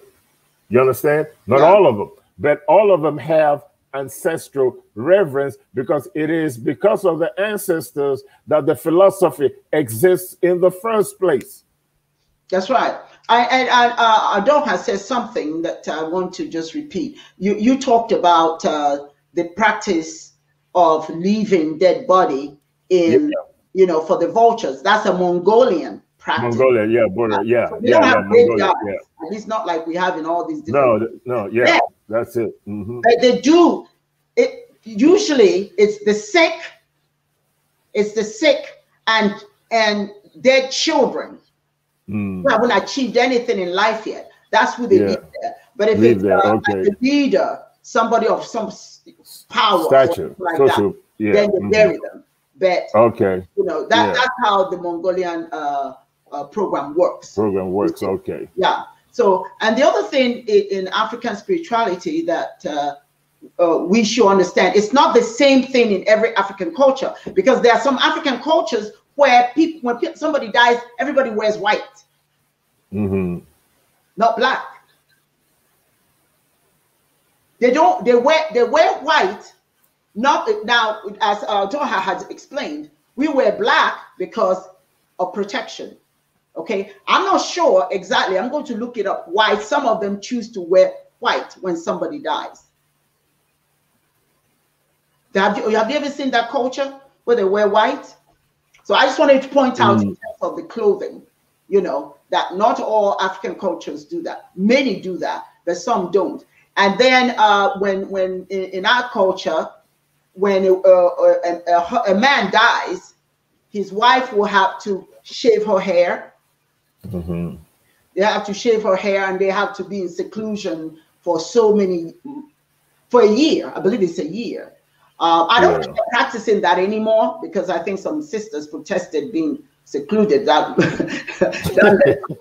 You understand? Not yeah. all of them, but all of them have ancestral reverence because it is because of the ancestors that the philosophy exists in the first place. That's right. I and I, uh, not has said something that I want to just repeat. You you talked about uh, the practice of leaving dead body in yeah. you know for the vultures. That's a Mongolian practice. Mongolia, yeah, border, yeah, so we yeah, don't have Mongolia, yeah. not like we have in all these. Different no, no, yeah, yeah. that's it. Mm -hmm. But they do it. Usually, it's the sick, it's the sick and and their children mm. who haven't achieved anything in life yet. That's who they yeah. there. But if leave it's uh, okay. like a leader, somebody of some power statue like statue. That, yeah. then they mm-hmm. bury them but okay you know that yeah. that's how the mongolian uh, uh, program works program works okay yeah so and the other thing in, in african spirituality that uh, uh, we should understand it's not the same thing in every african culture because there are some african cultures where people when somebody dies everybody wears white mm-hmm. not black they don't. They wear. They wear white. Not now, as uh, Doha has explained, we wear black because of protection. Okay, I'm not sure exactly. I'm going to look it up. Why some of them choose to wear white when somebody dies? Have you, have you ever seen that culture where they wear white? So I just wanted to point out mm. in terms of the clothing, you know, that not all African cultures do that. Many do that, but some don't. And then uh, when when in, in, our culture, when a, uh, uh, a, uh, a, man dies, his wife will have to shave her hair. Mm-hmm. They have to shave her hair, and they have to be in seclusion for so many for a year. I believe it's a year. Uh, I don't yeah. practicing that anymore because I think some sisters protested being secluded that, that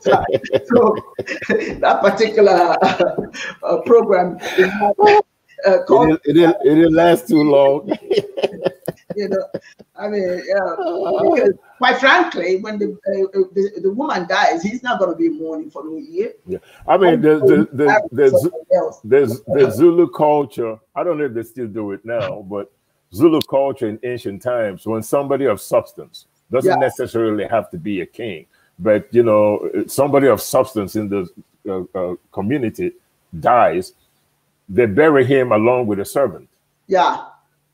so that particular uh, program uh, called, it, didn't, it, didn't, last too long you know i mean uh, quite frankly when the, uh, uh, the, the woman dies he's not going to be mourning for new year yeah i mean the the, the, the, zulu culture i don't know if they still do it now but zulu culture in ancient times when somebody of substance doesn't yeah. necessarily have to be a king, but you know, somebody of substance in the uh, uh, community dies, they bury him along with a servant. Yeah.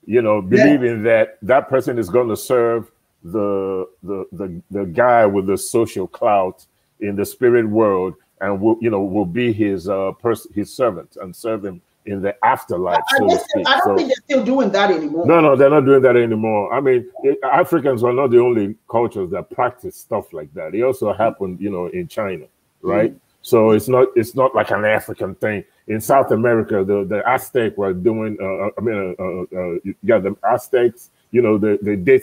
You know, believing yeah. that that person is going to serve the, the the the guy with the social clout in the spirit world and will you know will be his uh person his servant and serve him in the afterlife. I, so to speak. I don't so, think they're still doing that anymore. No, no, they're not doing that anymore. I mean, it, Africans are not the only cultures that practice stuff like that. It also happened, you know, in China, right? Mm-hmm. So it's not it's not like an African thing. In South America, the, the Aztec were doing. Uh, uh I mean, uh, uh, uh, yeah, the Aztecs. You know, they did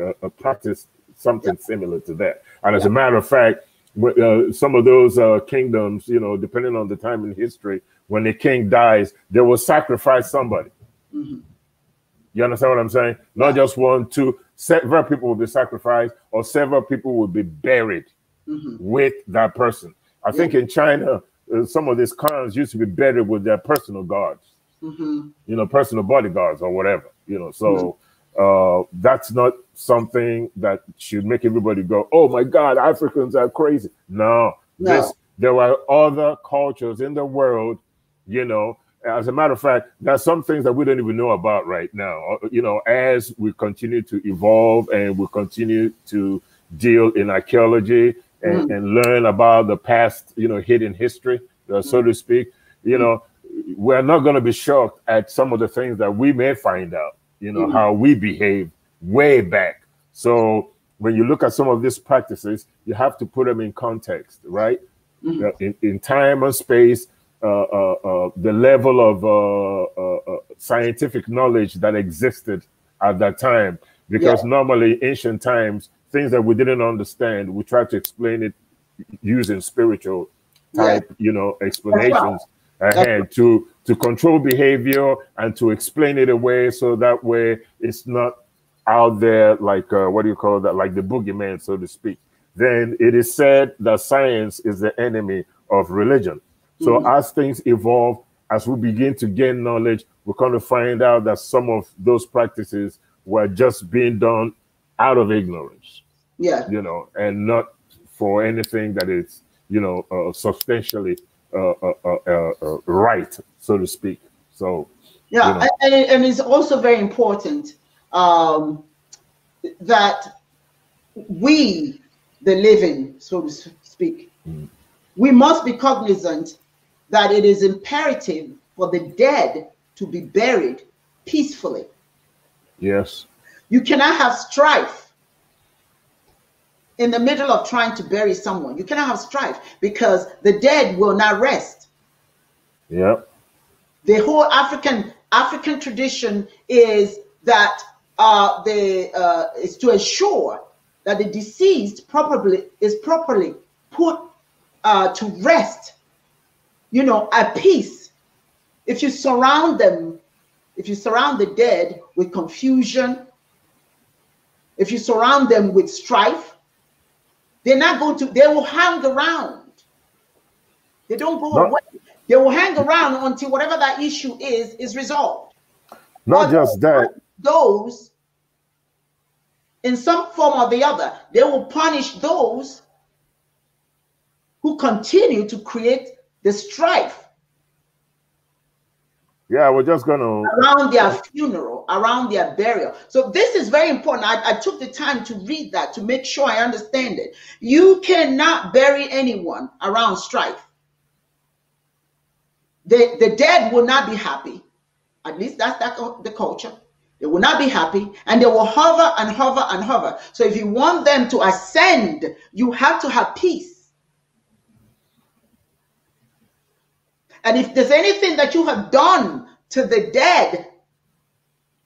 uh, practice something yeah. similar to that. And as a matter of fact, uh, some of those uh, kingdoms, you know, depending on the time in history, when the king dies, they will sacrifice somebody. Mm-hmm. You understand what I'm saying? Not just one, two, several people will be sacrificed or several people will be buried mm-hmm. with that person. I yeah. think in China, uh, some of these cons used to be buried with their personal guards, mm-hmm. you know, personal bodyguards or whatever, you know. So mm-hmm. uh, that's not something that should make everybody go, oh my God, Africans are crazy. No, no. This, there were other cultures in the world, you know. As a matter of fact, there are some things that we don't even know about right now, uh, you know, as we continue to evolve and we continue to deal in archaeology and, mm. and learn about the past, you know, hidden history, uh, so mm. to speak, you mm. know, we're not going to be shocked at some of the things that we may find out, you know, mm. how we behave way back. So when you look at some of these practices, you have to put them in context, right? Mm -hmm. in, in, time and space, uh, uh, uh, the level of uh, uh, scientific knowledge that existed at that time. Because yeah. normally, ancient times, things that we didn't understand, we try to explain it using spiritual type, yeah. you know, explanations right. ahead right. to to control behavior and to explain it away so that way it's not out there like uh, what do you call that like the boogeyman so to speak then it is said that science is the enemy of religion so mm -hmm. as things evolve as we begin to gain knowledge we're going to find out that some of those practices were just being done out of ignorance yeah you know and not for anything that is you know uh, substantially uh, uh, uh, uh right so to speak so yeah, you know. and, and, it's also very important um, that we, the living, so to speak, mm. we must be cognizant that it is imperative for the dead to be buried peacefully. Yes. You cannot have strife in the middle of trying to bury someone. You cannot have strife because the dead will not rest. Yep. The whole African African tradition is that uh, the, uh, is to ensure that the deceased properly is properly put uh, to rest, you know, at peace. If you surround them, if you surround the dead with confusion, if you surround them with strife, they're not going to, they will hang around. They don't go not, away. They will hang around until whatever that issue is, is resolved. Not but just that those in some form or the other. They will punish those who continue to create the strife. Yeah, we're just going to. Around their funeral, around their burial. So, this is very important. I, I took the time to read that to make sure I understand it. You cannot bury anyone around strife. The, the dead will not be happy. At least that's that, the culture. They will not be happy and they will hover and hover and hover. So if you want them to ascend, you have to have peace. And if there's anything that you have done to the dead,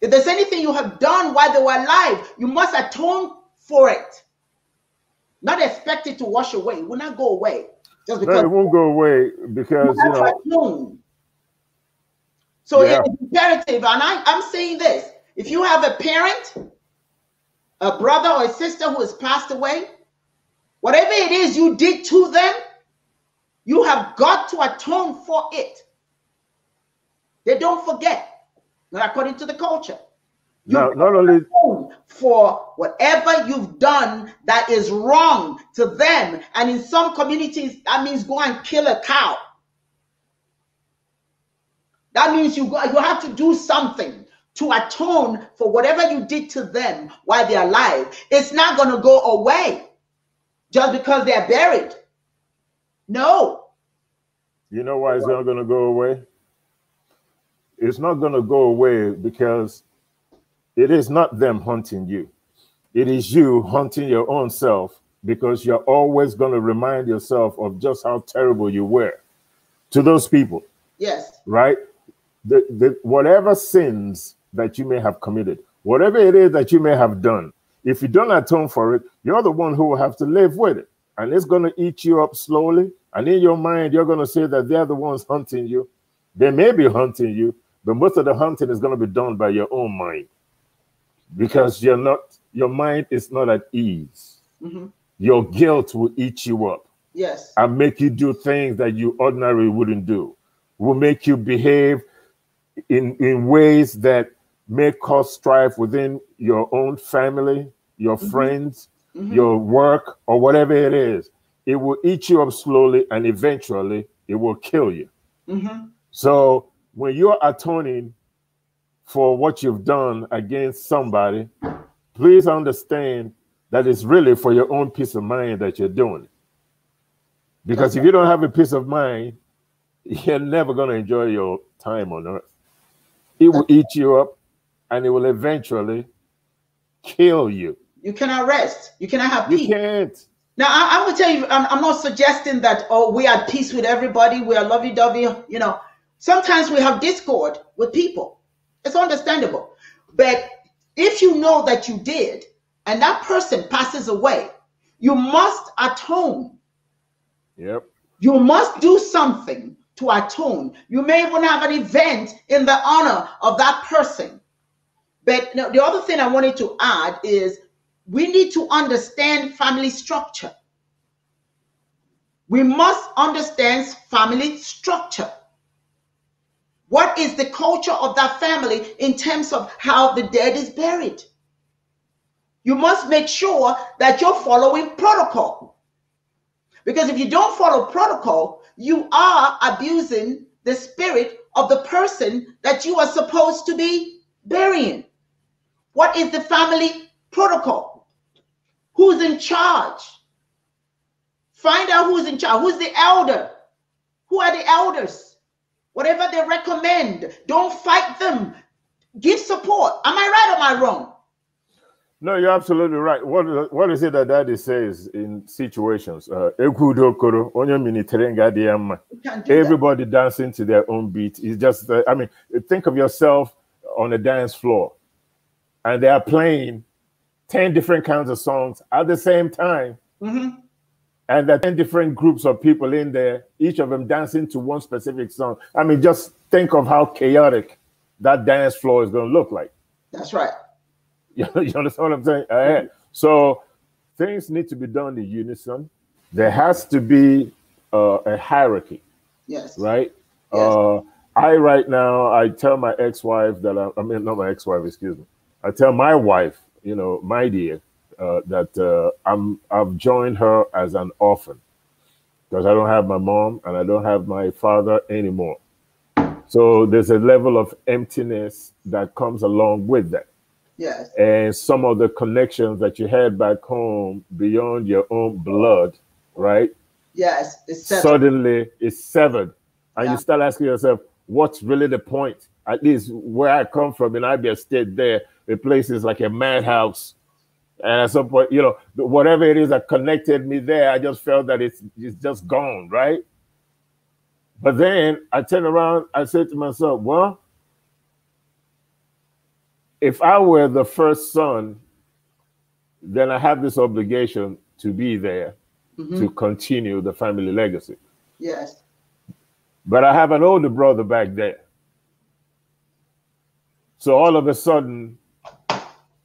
if there's anything you have done while they were alive, you must atone for it. Not expect it to wash away. It will not go away. Just because no, it won't go away because you, know. So yeah. it's imperative, and I, I'm saying this if you have a parent, a brother or a sister who has passed away, whatever it is you did to them, you have got to atone for it. They don't forget, not according to the culture. You no, not only for whatever you've done that is wrong to them, and in some communities that means go and kill a cow. That means you go, you have to do something to atone for whatever you did to them while they're alive. It's not going to go away just because they're buried. No. You know why it's not going to go away? It's not going to go away because it is not them hunting you. It is you hunting your own self because you're always going to remind yourself of just how terrible you were to those people. Yes. Right? The, the, whatever sins that you may have committed, whatever it is that you may have done, if you don't atone for it, you're the one who will have to live with it. And it's going to eat you up slowly. And in your mind, you're going to say that they're the ones hunting you. They may be hunting you, but most of the hunting is going to be done by your own mind because you're not, your mind is not at ease. Mm-hmm. Your guilt will eat you up. Yes. And make you do things that you ordinarily wouldn't do, will make you behave in, in ways that may cause strife within your own family, your mm -hmm. friends, mm -hmm. your work, or whatever it is. It will eat you up slowly and eventually it will kill you. Mm -hmm. So when you're atoning for what you've done against somebody, please understand that it's really for your own peace of mind that you're doing it. Because okay. if you don't have a peace of mind, you're never going to enjoy your time on earth. It will eat you up and it will eventually kill you. You cannot rest. You cannot have peace. You can't. Now, I, am going to tell you, I'm, I'm, not suggesting that, oh, we are at peace with everybody. We are lovey dovey. You know, sometimes we have discord with people. It's understandable. But if you know that you did and that person passes away, you must atone. Yep. You must do something to atone. You may even have an event in the honor of that person but the other thing I wanted to add is we need to understand family structure. We must understand family structure. What is the culture of that family in terms of how the dead is buried? You must make sure that you're following protocol. Because if you don't follow protocol, you are abusing the spirit of the person that you are supposed to be burying. What is the family protocol? Who's in charge? Find out who's in charge. Who's the elder? Who are the elders? Whatever they recommend, don't fight them. Give support. Am I right or am I wrong? No, you're absolutely right. What, what is it that daddy says in situations? Uh, Everybody dancing to their own beat. It's just, uh, I mean, think of yourself on a dance floor and they are playing 10 different kinds of songs at the same time. Mm -hmm. And there are 10 different groups of people in there, each of them dancing to one specific song. I mean, just think of how chaotic that dance floor is going to look like. That's right. You, you understand what I'm saying? Mm -hmm. So things need to be done in unison. There has to be uh, a hierarchy. Yes. Right? Yes. Uh, I, right now, I tell my ex wife that I, I mean, not my ex wife, excuse me. I tell my wife, you know, my dear, uh, that uh, I'm I've joined her as an orphan because I don't have my mom and I don't have my father anymore. So there's a level of emptiness that comes along with that. Yes. And some of the connections that you had back home beyond your own blood, right? Yes. It's severed. Suddenly it's severed. And yeah. you start asking yourself, what's really the point? At least where I come from in Abia State, there, the place is like a madhouse. And at some point, you know, whatever it is that connected me there, I just felt that it's, it's just gone, right? But then I turned around, I said to myself, well, if I were the first son, then I have this obligation to be there mm -hmm. to continue the family legacy. Yes. But I have an older brother back there. So all of a sudden,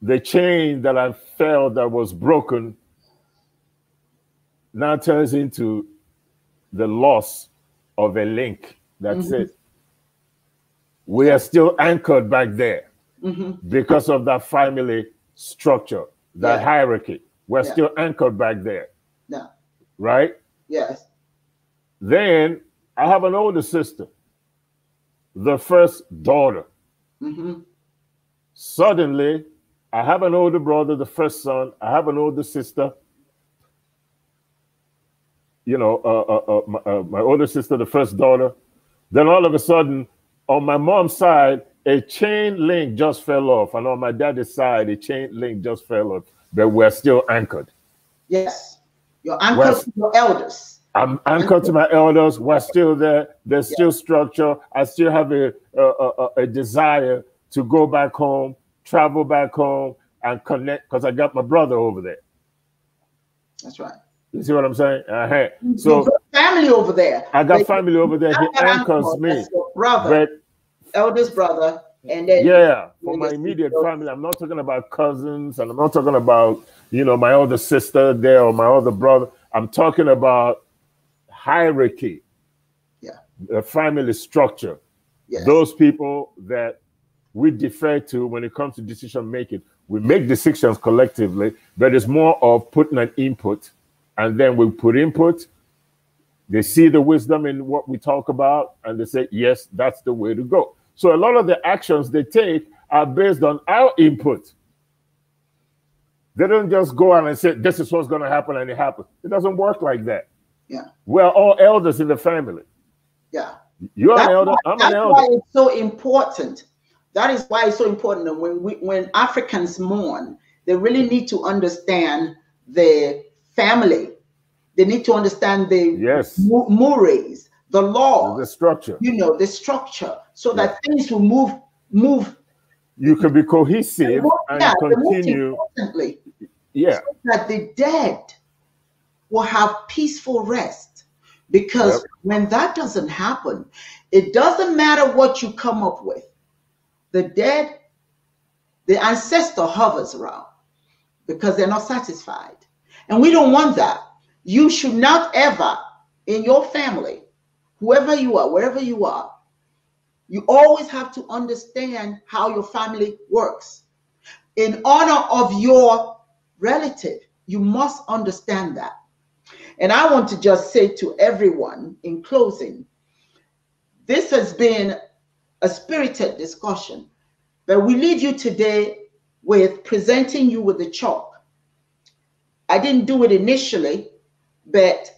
the chain that I felt that was broken now turns into the loss of a link. That's mm -hmm. it. We are still anchored back there mm -hmm. because of that family structure, that yeah. hierarchy. We're yeah. still anchored back there. Yeah. Right? Yes. Then I have an older sister, the first daughter. Mm -hmm. Suddenly, I have an older brother, the first son. I have an older sister. You know, uh, uh, uh, my, uh, my older sister, the first daughter. Then all of a sudden, on my mom's side, a chain link just fell off, and on my daddy's side, a chain link just fell off. But we're still anchored. Yes, you're anchored we're, to your elders. I'm anchored to my elders. We're still there. There's yeah. still structure. I still have a, a, a, a desire to go back home travel back home and connect because I got my brother over there. That's right. You see what I'm saying? Uh So family over there. I got family over there. He anchors me. Brother, but, eldest brother, and then yeah, for my immediate people. family. I'm not talking about cousins, and I'm not talking about you know my older sister there or my other brother. I'm talking about hierarchy. Yeah. The family structure. Yes. Those people that we defer to when it comes to decision making. We make decisions collectively, but it's more of putting an input, and then we put input. They see the wisdom in what we talk about, and they say, "Yes, that's the way to go." So a lot of the actions they take are based on our input. They don't just go out and say, "This is what's going to happen," and it happens. It doesn't work like that. Yeah, we're all elders in the family. Yeah. You're that's an elder. Why, I'm an elder. That's why it's so important that is why it's so important that when we, when Africans mourn, they really need to understand the family. They need to understand the yes. mores, the law, the structure. You know, the structure, so yes. that things will move move. You can be cohesive and continue. Yeah. So that the dead will have peaceful rest. Because yep. when that doesn't happen, it doesn't matter what you come up with the dead, the ancestor hovers around because they're not satisfied. And we don't want that. You should not ever, in your family, whoever you are, wherever you are, you always have to understand how your family works. In honor of your relative, you must understand that. And I want to just say to everyone in closing, this has been a spirited discussion. But we leave you today with presenting you with the chalk. I didn't do it initially, but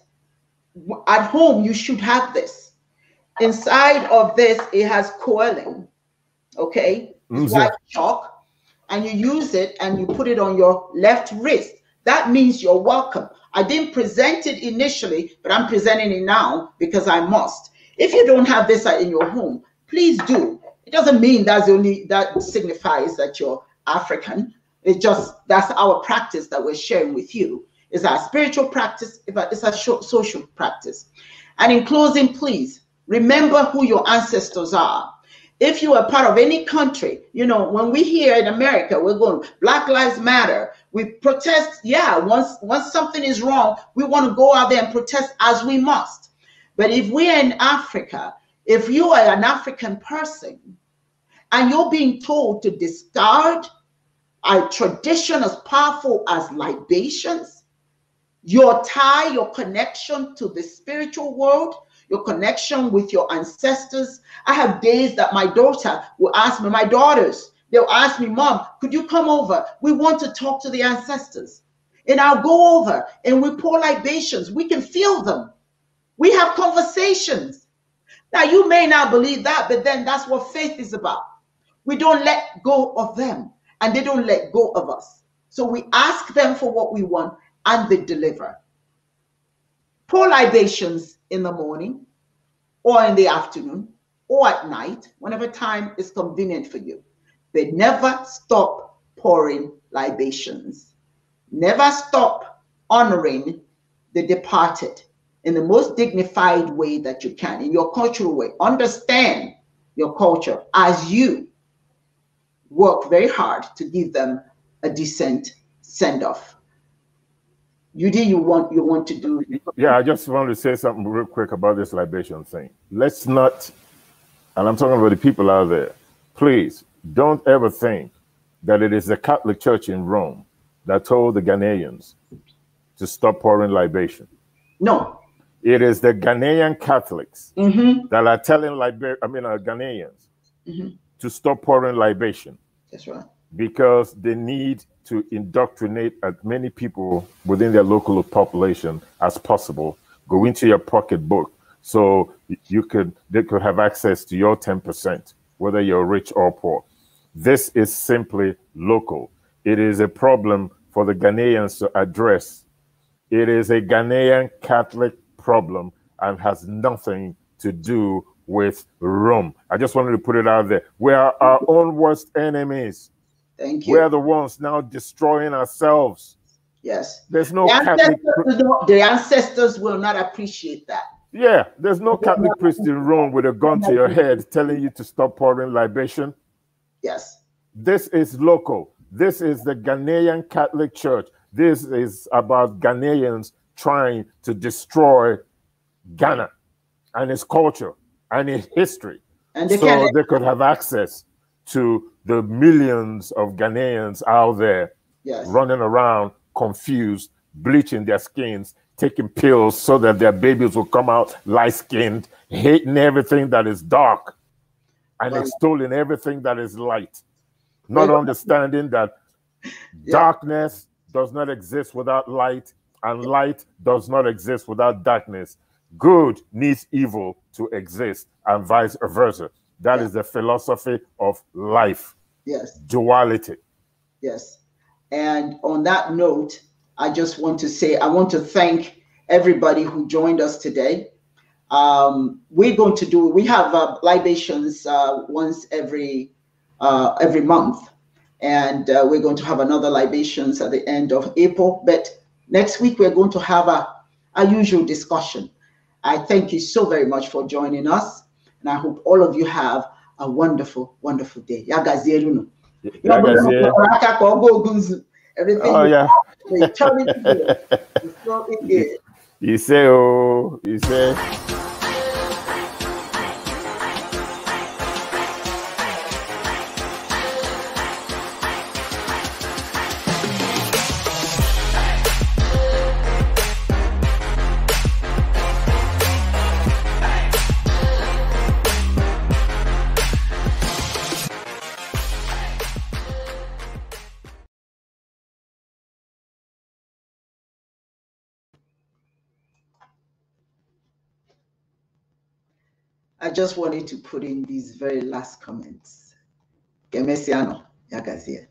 at home you should have this. Inside of this, it has coiling, okay? Mm-hmm. It's white chalk, and you use it and you put it on your left wrist. That means you're welcome. I didn't present it initially, but I'm presenting it now because I must. If you don't have this in your home, please do. It doesn't mean that's the only that signifies that you're African. It just that's our practice that we're sharing with you. It's our spiritual practice, it's a social practice. And in closing, please remember who your ancestors are. If you are part of any country, you know, when we here in America, we're going Black Lives Matter. We protest, yeah, once once something is wrong, we want to go out there and protest as we must. But if we are in Africa if you are an African person and you're being told to discard a tradition as powerful as libations, your tie, your connection to the spiritual world, your connection with your ancestors. I have days that my daughter will ask me, my daughters, they'll ask me, Mom, could you come over? We want to talk to the ancestors. And I'll go over and we pour libations. We can feel them. We have conversations. Now, you may not believe that, but then that's what faith is about. We don't let go of them, and they don't let go of us. So we ask them for what we want, and they deliver. Pour libations in the morning, or in the afternoon, or at night, whenever time is convenient for you. They never stop pouring libations. Never stop honoring the departed in the most dignified way that you can, in your cultural way. Understand your culture as you work very hard to give them a decent send off. You do you want you want to do. Yeah, I just want to say something real quick about this libation thing. Let's not, and I'm talking about the people out there. Please don't ever think that it is the Catholic Church in Rome that told the Ghanaians to stop pouring libation. No. It is the Ghanaian Catholics mm-hmm. that are telling Liber- I mean, uh, Ghanaians mm-hmm. to stop pouring libation. That's right. Because they need to indoctrinate as many people within their local population as possible. Go into your pocketbook so you could they could have access to your 10%, whether you're rich or poor. This is simply local. It is a problem for the Ghanaians to address. It is a Ghanaian Catholic problem and has nothing to do with Rome. I just wanted to put it out there. We are our own worst enemies. Thank you. We are the ones now destroying ourselves. Yes. There's no the ancestors, Catholic... the ancestors will not appreciate that. Yeah, there's no Catholic priest in Rome with a gun to your head telling you to stop pouring libation. Yes. This is local. This is the Ghanaian Catholic Church. This is about Ghanaians trying to destroy Ghana and its culture and its history. And they so can... they could have access to the millions of Ghanaians out there yes. running around confused, bleaching their skins, taking pills so that their babies will come out light skinned, hating everything that is dark and wow. extolling everything that is light, not understanding that yeah. darkness does not exist without light and light does not exist without darkness. Good needs evil to exist, and vice versa. That yeah. is the philosophy of life. Yes. Duality. Yes. And on that note, I just want to say I want to thank everybody who joined us today. Um, we're going to do we have uh, libations uh, once every uh, every month, and uh, we're going to have another libations at the end of April. But Next week, we're going to have a, a usual discussion. I thank you so very much for joining us. And I hope all of you have a wonderful, wonderful day. Yagazielu. Yagazielu. Everything. Oh, yeah. You say, oh, you say. I just wanted to put in these very last comments. Gemesiano, Yagazie.